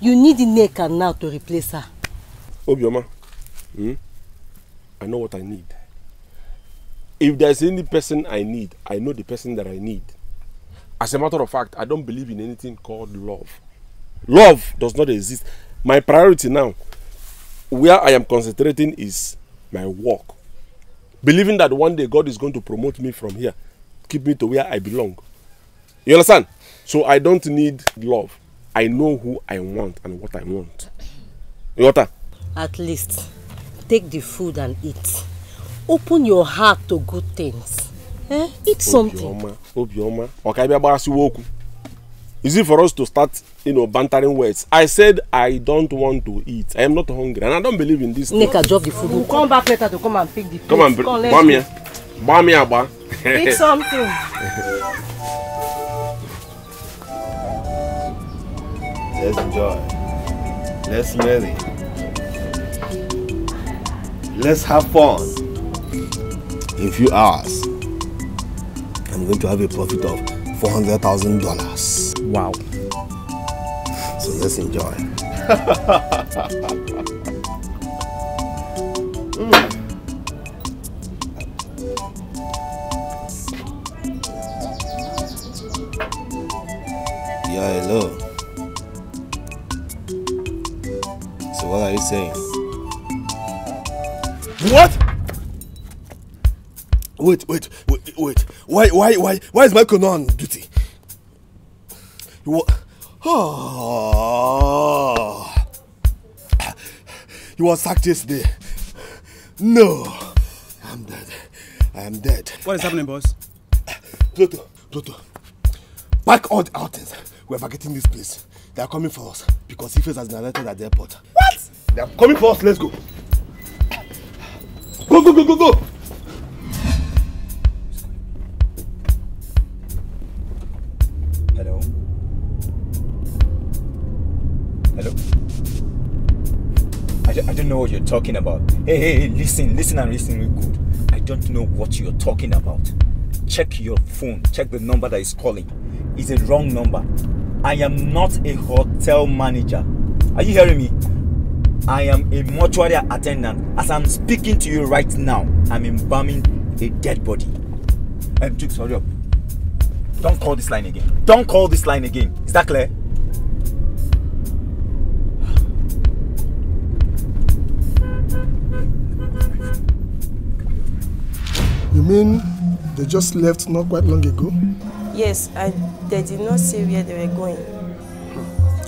A: you need the neck and now to replace her.
F: Obioma, hmm? I know what I need. If there's any person I need, I know the person that I need. As a matter of fact, I don't believe in anything called love. Love does not exist. My priority now, where I am concentrating is my work believing that one day God is going to promote me from here, keep me to where I belong. You understand? So I don't need love. I know who I want and what I want. Water.
C: At
A: least take the food and eat. Open your heart to good things.
C: Eh? Eat something.
F: Obioma, Is it for us to start you know, bantering words. I said I don't want to eat. I am not hungry, and I don't believe in this. Nika, drop the food. We'll
A: come back later to come and pick the. Plate. Come on, come, bomb here,
F: bomb here, ba. Pick
A: something.
B: Let's enjoy. Let's marry. Let's have fun. In few hours, I'm going to have a profit of four hundred thousand dollars. Wow.
G: Let's enjoy. mm. Yeah, hello. So what are you saying? What? Wait, wait,
B: wait, wait. Why, why, why, why is Michael not on duty? What? Oh. You was sacked yesterday. No. I'm dead. I am dead. What is happening, boss? Pluto, Pluto. Pack all the outings. We are vacating this place. They are coming for us because Ifes has been alerted at the airport. What? They are coming for us. Let's go. Go, go, go, go, go.
G: Hello? Hello? I, don't know what you're talking about. Hey, hey, hey, listen, listen and listen real good. I don't know what you're talking about. Check your phone. Check the number that is calling. It's a wrong number. I am not a hotel manager. Are you hearing me? I am a mortuary attendant. As I'm speaking to you right now, I'm embalming a dead body. i um, Jukes, hurry up. Don't call this line again. Don't call this line again. Is that clear?
B: You mean they just left not quite long ago?
A: Yes, and they did not say where they were going.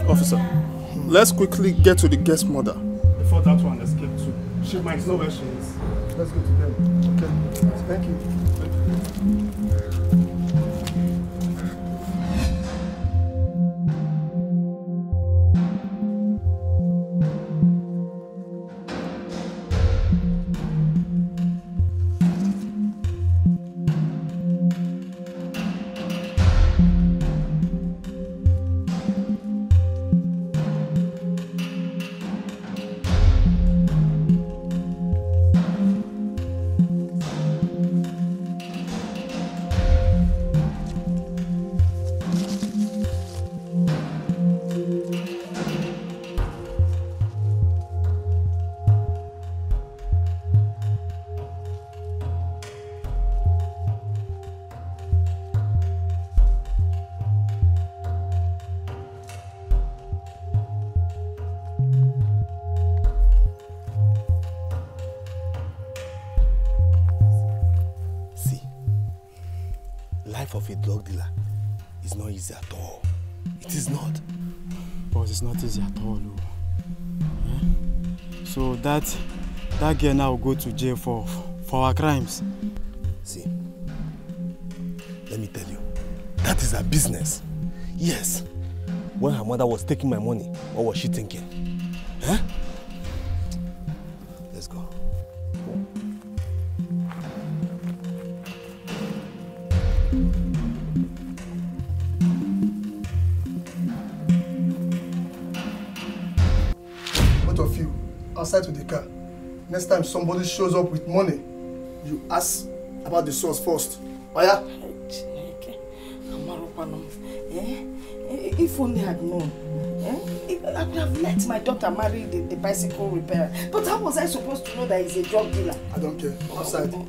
B: Officer, hmm. let's quickly get to the guest mother. Before that one escaped too. She might know where she is. Let's go to them. Okay. Thank you.
E: that girl now go to jail for for our crimes.
B: See, let me tell you, that is her business. Yes, when her mother was taking my money, what was she thinking? Huh? next time somebody shows up with money you ask about the source first oya. Eh? Eh, if
A: only I'd known eh? I could have let my daughter marry the, the bicycle repairer but how was I supposed to know that he's a drug dealer. I don't care outside. No,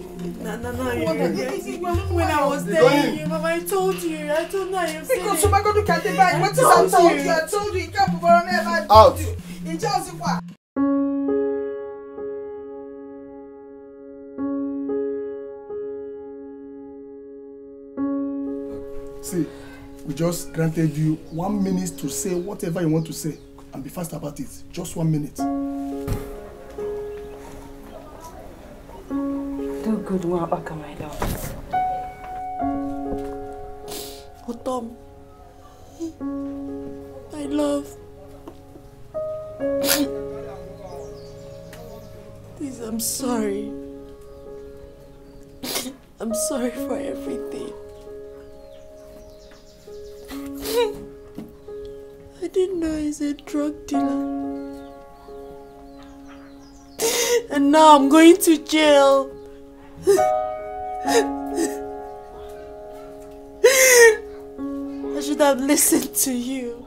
A: no, no, oh, you, you, when I was there,
H: Mama, I told you, I told you, I've said Because you
A: might go to Kati back, what is I
D: told you? I told you, you can't perform ever. Out. In Chelsea, what?
B: just granted you one minute to say whatever you want to say and be fast about it just one minute.
A: do good one my love.
H: Oh Tom, my love. Please, I'm sorry. I'm sorry for everything. didn't know he's a drug dealer. and now I'm going to jail. I should have listened to you.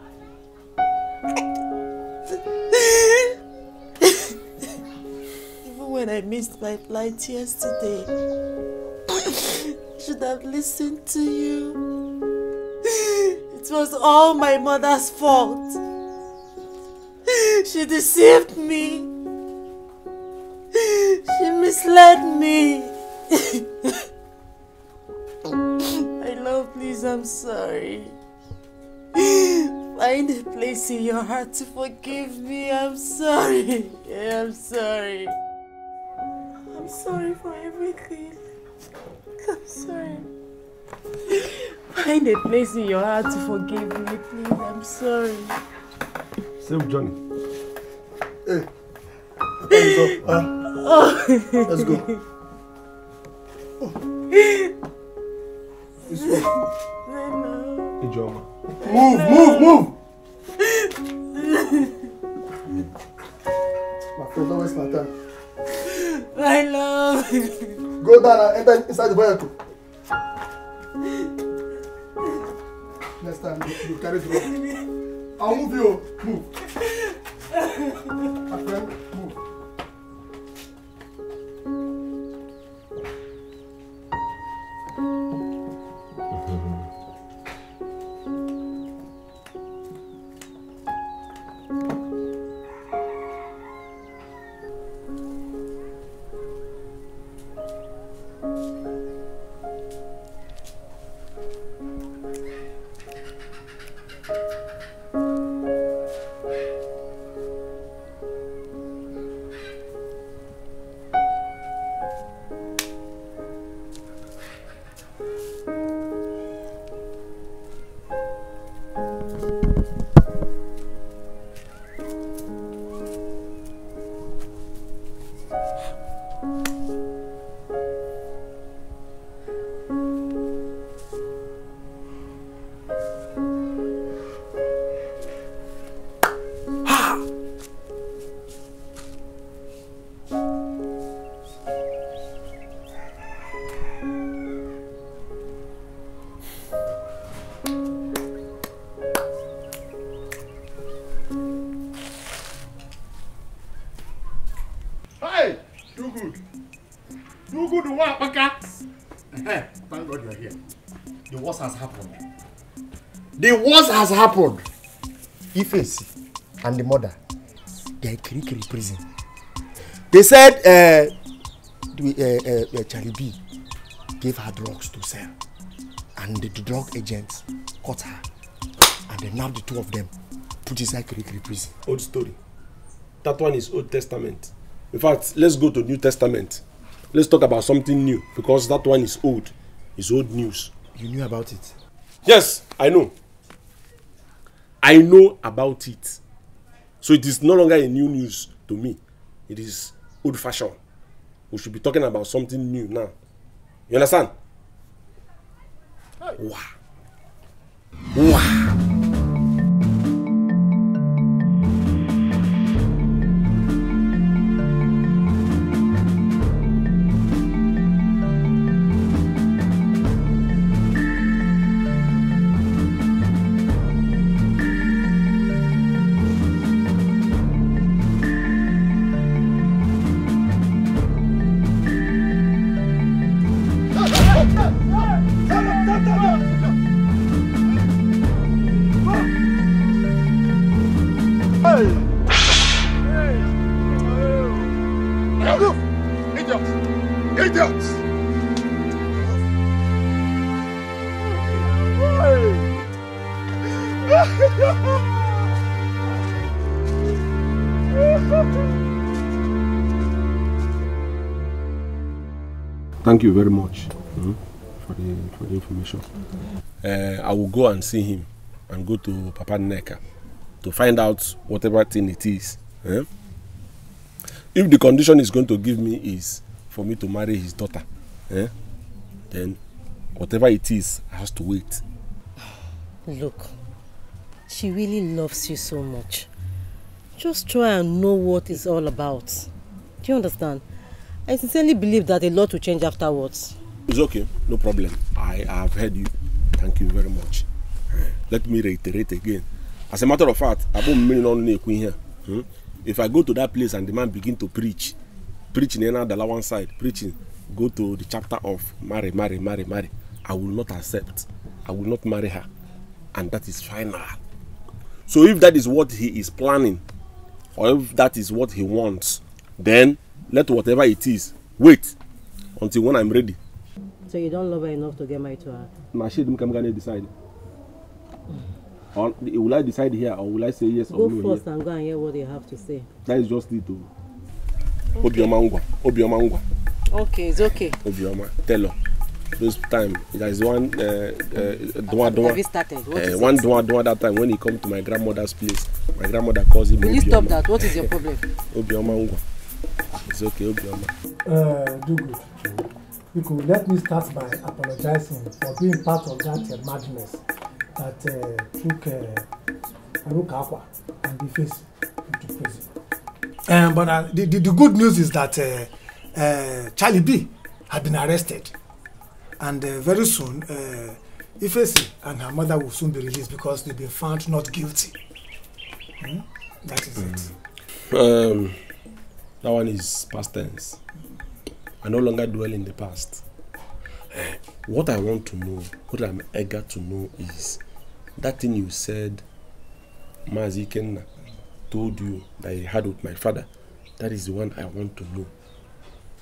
H: Even when I missed my flight yesterday, I should have listened to you. It was all my mother's fault. She deceived me. She misled me. my love, please, I'm sorry. Find a place in your heart to forgive me. I'm sorry. Yeah, I'm sorry. I'm sorry for everything. I'm sorry. Find a place in your heart to forgive me, please. I'm sorry.
F: Save Johnny. Hey. let's go. Huh? Oh. Let's go. Oh.
C: This way. Move, move, move! My friend, don't waste my
B: time. My love. Go down and enter inside the vehicle. Next time, you, you carry drop. I'll move you. Move.
C: My friend, move.
B: the worst has happened. Ifesi and the mother, they are in prison. They said uh, the, uh, uh, uh gave her drugs to sell. And the, drug agents caught her. And they nabbed the two of them, put inside Kirikiri prison. Old story. That one is Old Testament.
F: In fact, let's go to New Testament. Let's talk about something new because that one is old. It's old news. You knew about it? Yes, I know. I know about it. So it is no longer a new news to me. It is old fashioned. We should be talking about something new now. You understand? Wow. Thank you very much mm, for, the, for the information. Uh, I will go and see him and go to Papa Neka to find out whatever thing it is. Eh? If the condition is going to give me is for me to marry his daughter, eh? then whatever it is has to wait.
A: Look, she really loves you so much. Just try and know what it's all about. Do you understand? I sincerely believe that a lot will change afterwards.
F: It's okay, no problem. I have heard you. Thank you very much. Eh, let me reiterate again. As a matter of fact, I won't mean only here. If I go to that place and the man begin to preach, preaching in the one side, preaching, go to the chapter of marry, marry, marry, marry. I will not accept. I will not marry her. And that is final. So if that is what he is planning, or if that is what he wants, then let whatever it is wait until when i'm ready.
A: so you don't love her enough to get married to her.
F: na she dem kamgane decide or will i decide here or will i say yes go or no go first
A: and go and hear what they have to say.
F: that is just it o. Oh. obioma ngwa obioma ngwa.
A: okay it's okay.
F: obioma tell her This time there is one uh, uh, dua dua uh, one dua that time when he come to my grandmother's place my grandmother calls him will you stop that what is your problem. obioma ngwa. It's okay, Obioma.
B: Uh, do good. You could let me start by apologizing for being part of that uh, madness that uh, took uh, and the face into prison. Um, but uh, the, the, the good news is that uh, uh, Charlie B had been arrested. And uh, very soon, uh, Ifesi and her mother will soon be released because they've been found not guilty.
C: Hmm?
F: That is mm. it. Um, That one is past tense. I no longer dwell in the past. Eh, what I want to know, what I'm eager to know is that thing you said, Mazi told you that he had with my father. That is the one I want
B: to know.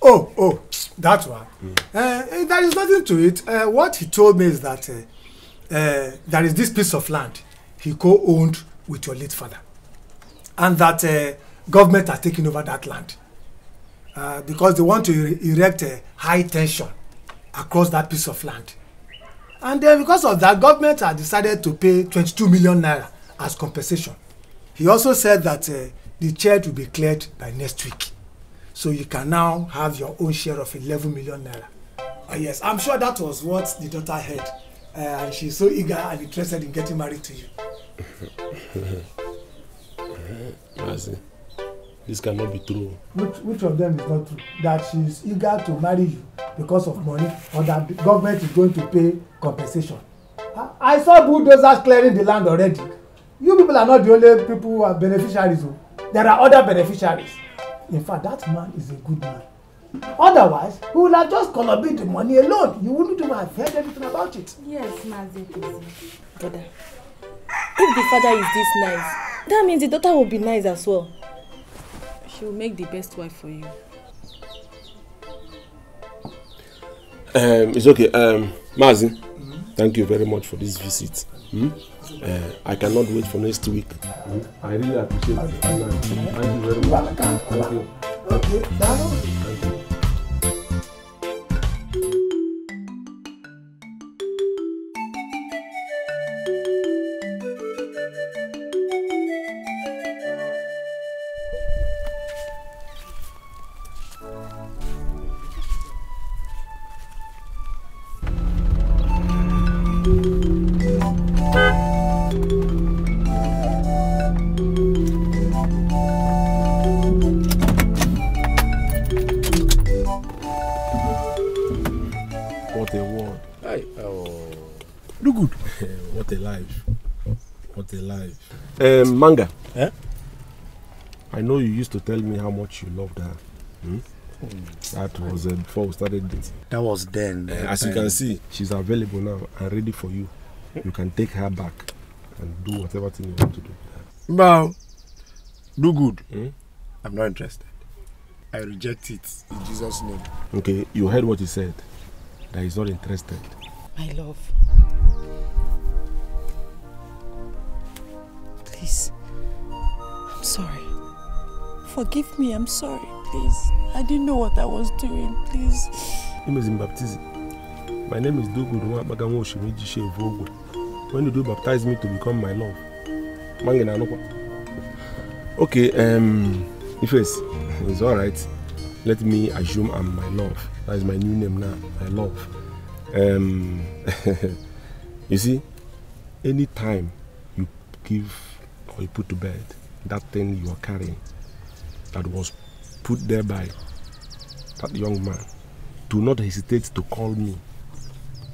B: Oh, oh, that one. Mm. Uh, there is nothing to it. Uh, what he told me is that uh, uh, there is this piece of land he co-owned with your late father. And that uh, government has taken over that land uh, because they want to erect a high tension across that piece of land and then because of that government has decided to pay twenty-two million naira as compensation he also said that uh, the church will be cleared by next week so you can now have your own share of eleven million naira uh, yes i'm sure that was what the daughter heard uh, and she's so eager and interested in getting married to you.
F: I see. This cannot be true.
B: Which, which of them is not true? That she is eager to marry you because of money or that the government is going to pay compensation. I, I saw bulldozers clearing the land already. You people are not the only people who are beneficiaries. Oh. There are other beneficiaries. In fact, that man is a good man. Otherwise, he
D: would have just collaborated the money alone. You wouldn't even have heard
A: anything about it. Yes, Mazi. Brother, if the father is this nice, that means the daughter will be nice as well she will make the best wife for you.
F: Um, it's okay. Um, Mazi, mm -hmm. thank you very much for this visit. Hmm? Uh, I cannot wait for next week. Hmm? I really appreciate it. Thank you very much. Thank you.
C: Thank you.
F: Um, manga. Eh? I know you used to tell me how much you loved her. Hmm? That was uh, before we started this. That was then. Uh, as you can see, she's available now and ready for you. You can take her back and do whatever thing you want to do.
B: Well, do good. Hmm? I'm not interested. I reject it in Jesus' name.
F: Okay, you heard what he said. That he's not interested.
H: My love, Forgive me, I'm sorry, please. I didn't know what I was doing, please.
F: Name is in baptism. My name is Duguruma Baganwo Oshimiji Shevogwe. When did you baptize me to become my love? Mangina Okay, um, Ifes, it's alright. Let me assume I'm my love. That is my new name now, my love. Um, you see, any time you give or you put to bed that thing you are carrying, that was put there by that young man, do not hesitate to call me.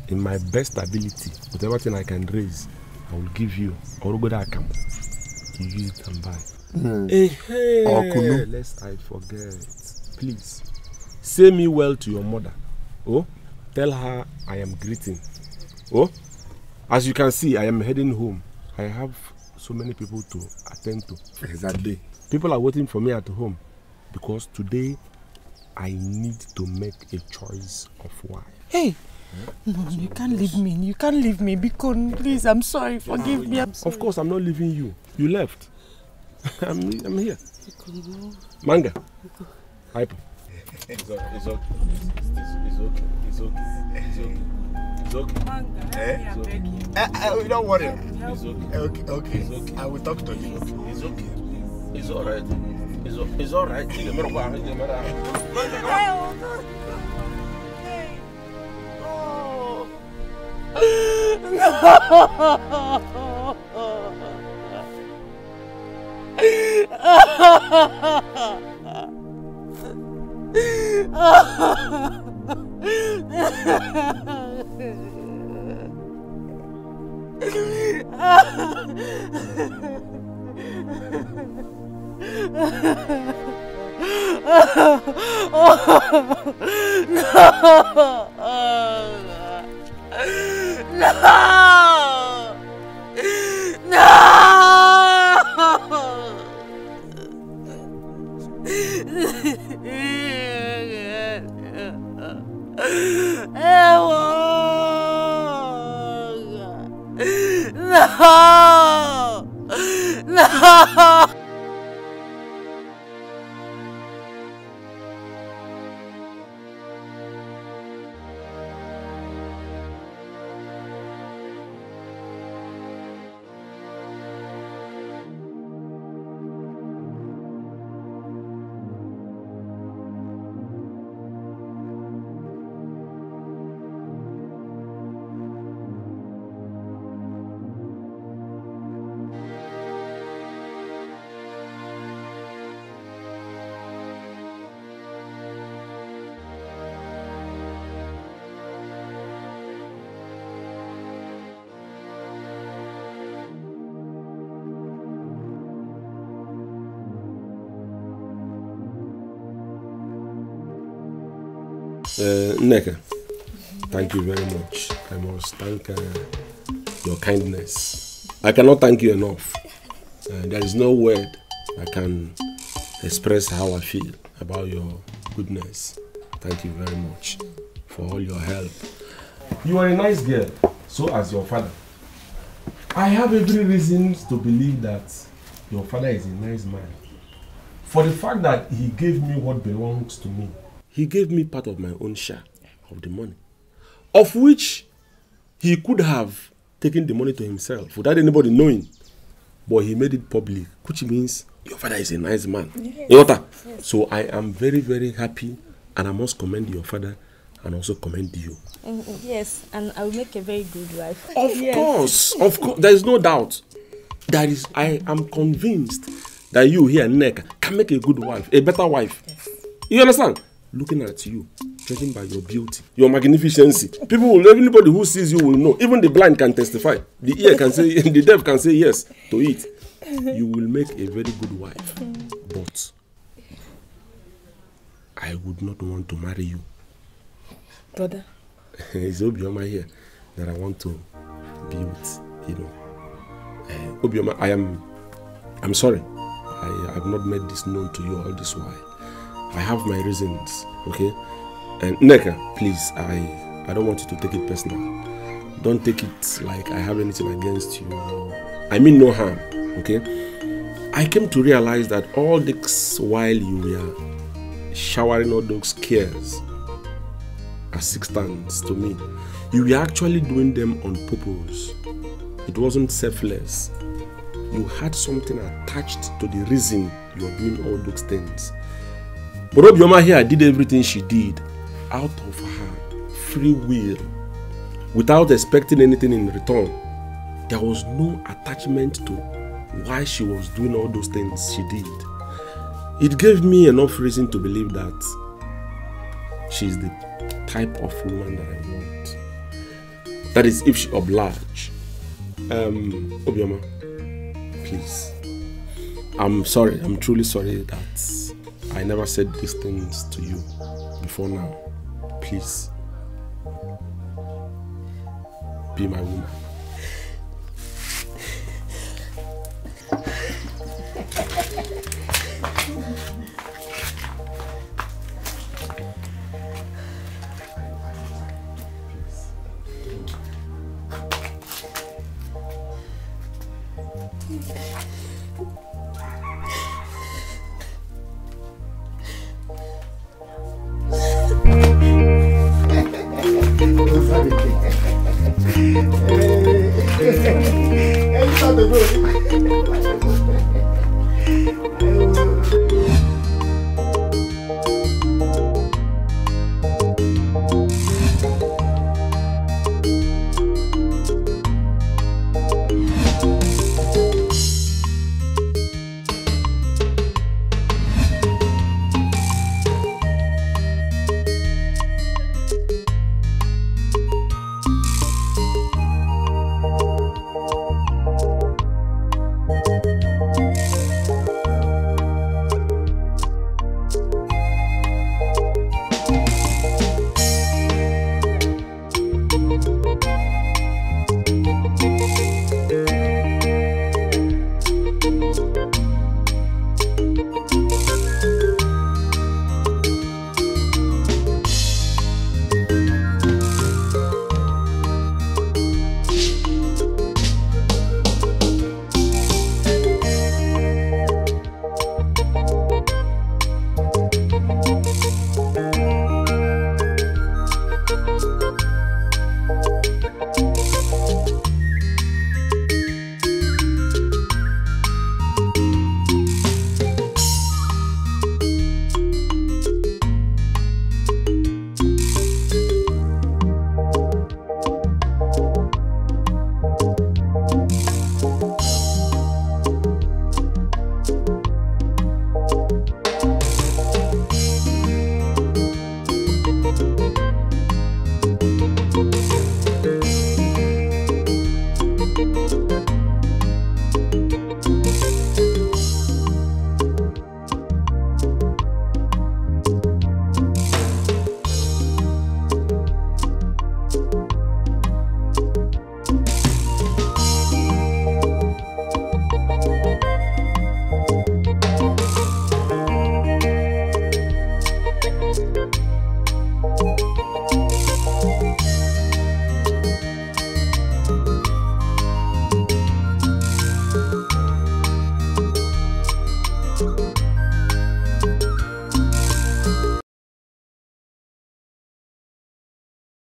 F: In my best ability, with everything I can raise, I will give you. All good I can. You use it and buy. Mm. Lest I forget. Please, say me well to your mother. Oh, tell her I am greeting. Oh, as you can see, I am heading home. I have so many people to attend to. Exactly. People are waiting for me at home because today I need to make a choice of why.
C: Hey, no, you
H: can't leave me. You can't leave me. Because please, I'm sorry. Forgive me.
F: I'm sorry. Of course, I'm not leaving you. You left. I'm, I'm here. Manga. Hype.
G: It's okay. It's okay. It's okay. It's okay. It's okay. It's
C: okay. Manga,
B: eh? okay. I, eh, I, eh, don't worry. It's okay. Eh, okay. okay. okay. I will talk
F: to you. It's okay. It's alright. It's, it's alright. Diga, meu pai, diga, meu pai.
C: No! oh, no! No! no!
F: Nneka, thank you very much. I must thank uh, your kindness. I cannot thank you enough. Uh, there is no word I can express how I feel about your goodness. Thank you very much for all your help. You are a nice girl, so as your father. I have every reason to believe that your father is a nice man. For the fact that he gave me what belongs to me. He gave me part of my own share. of the money, of which he could have taken the money to himself without anybody knowing, but he made it public, which means your father is a nice man. Yes. Yota. Yes. So I am very, very happy, and I must commend your father and also commend you.
A: Mm, mm, yes, and I will make a very good wife. Of yes. course, of course,
F: there is no doubt. That is, I am convinced that you here, Nneka, can make a good wife, a better wife. Yes. You understand? Looking at you, judging by your beauty, your magnificency. People will, anybody who sees you will know. Even the blind can testify. The ear can say, the deaf can say yes to it. You will make a very good wife. But I would not want to marry you. Brother. it's Obioma here that I want to be with, you know. Uh, Obioma, I am, I'm sorry. I have not made this known to you all this while. I have my reasons, okay? And Neka, please, I, I don't want you to take it personal. Don't take it like I have anything against you. I mean no harm, okay? I came to realize that all this while you were showering all those cares assistance to me, you were actually doing them on purpose. It wasn't selfless. You had something attached to the reason you are doing all those things. But Obioma here did everything she did out of her free will without expecting anything in return. There was no attachment to why she was doing all those things she did. It gave me enough reason to believe that she's the type of woman that I want. That is, if she oblige. Um, Obioma, please. I'm sorry, I'm truly sorry that I never said these things to you before now. peace. Be my woman.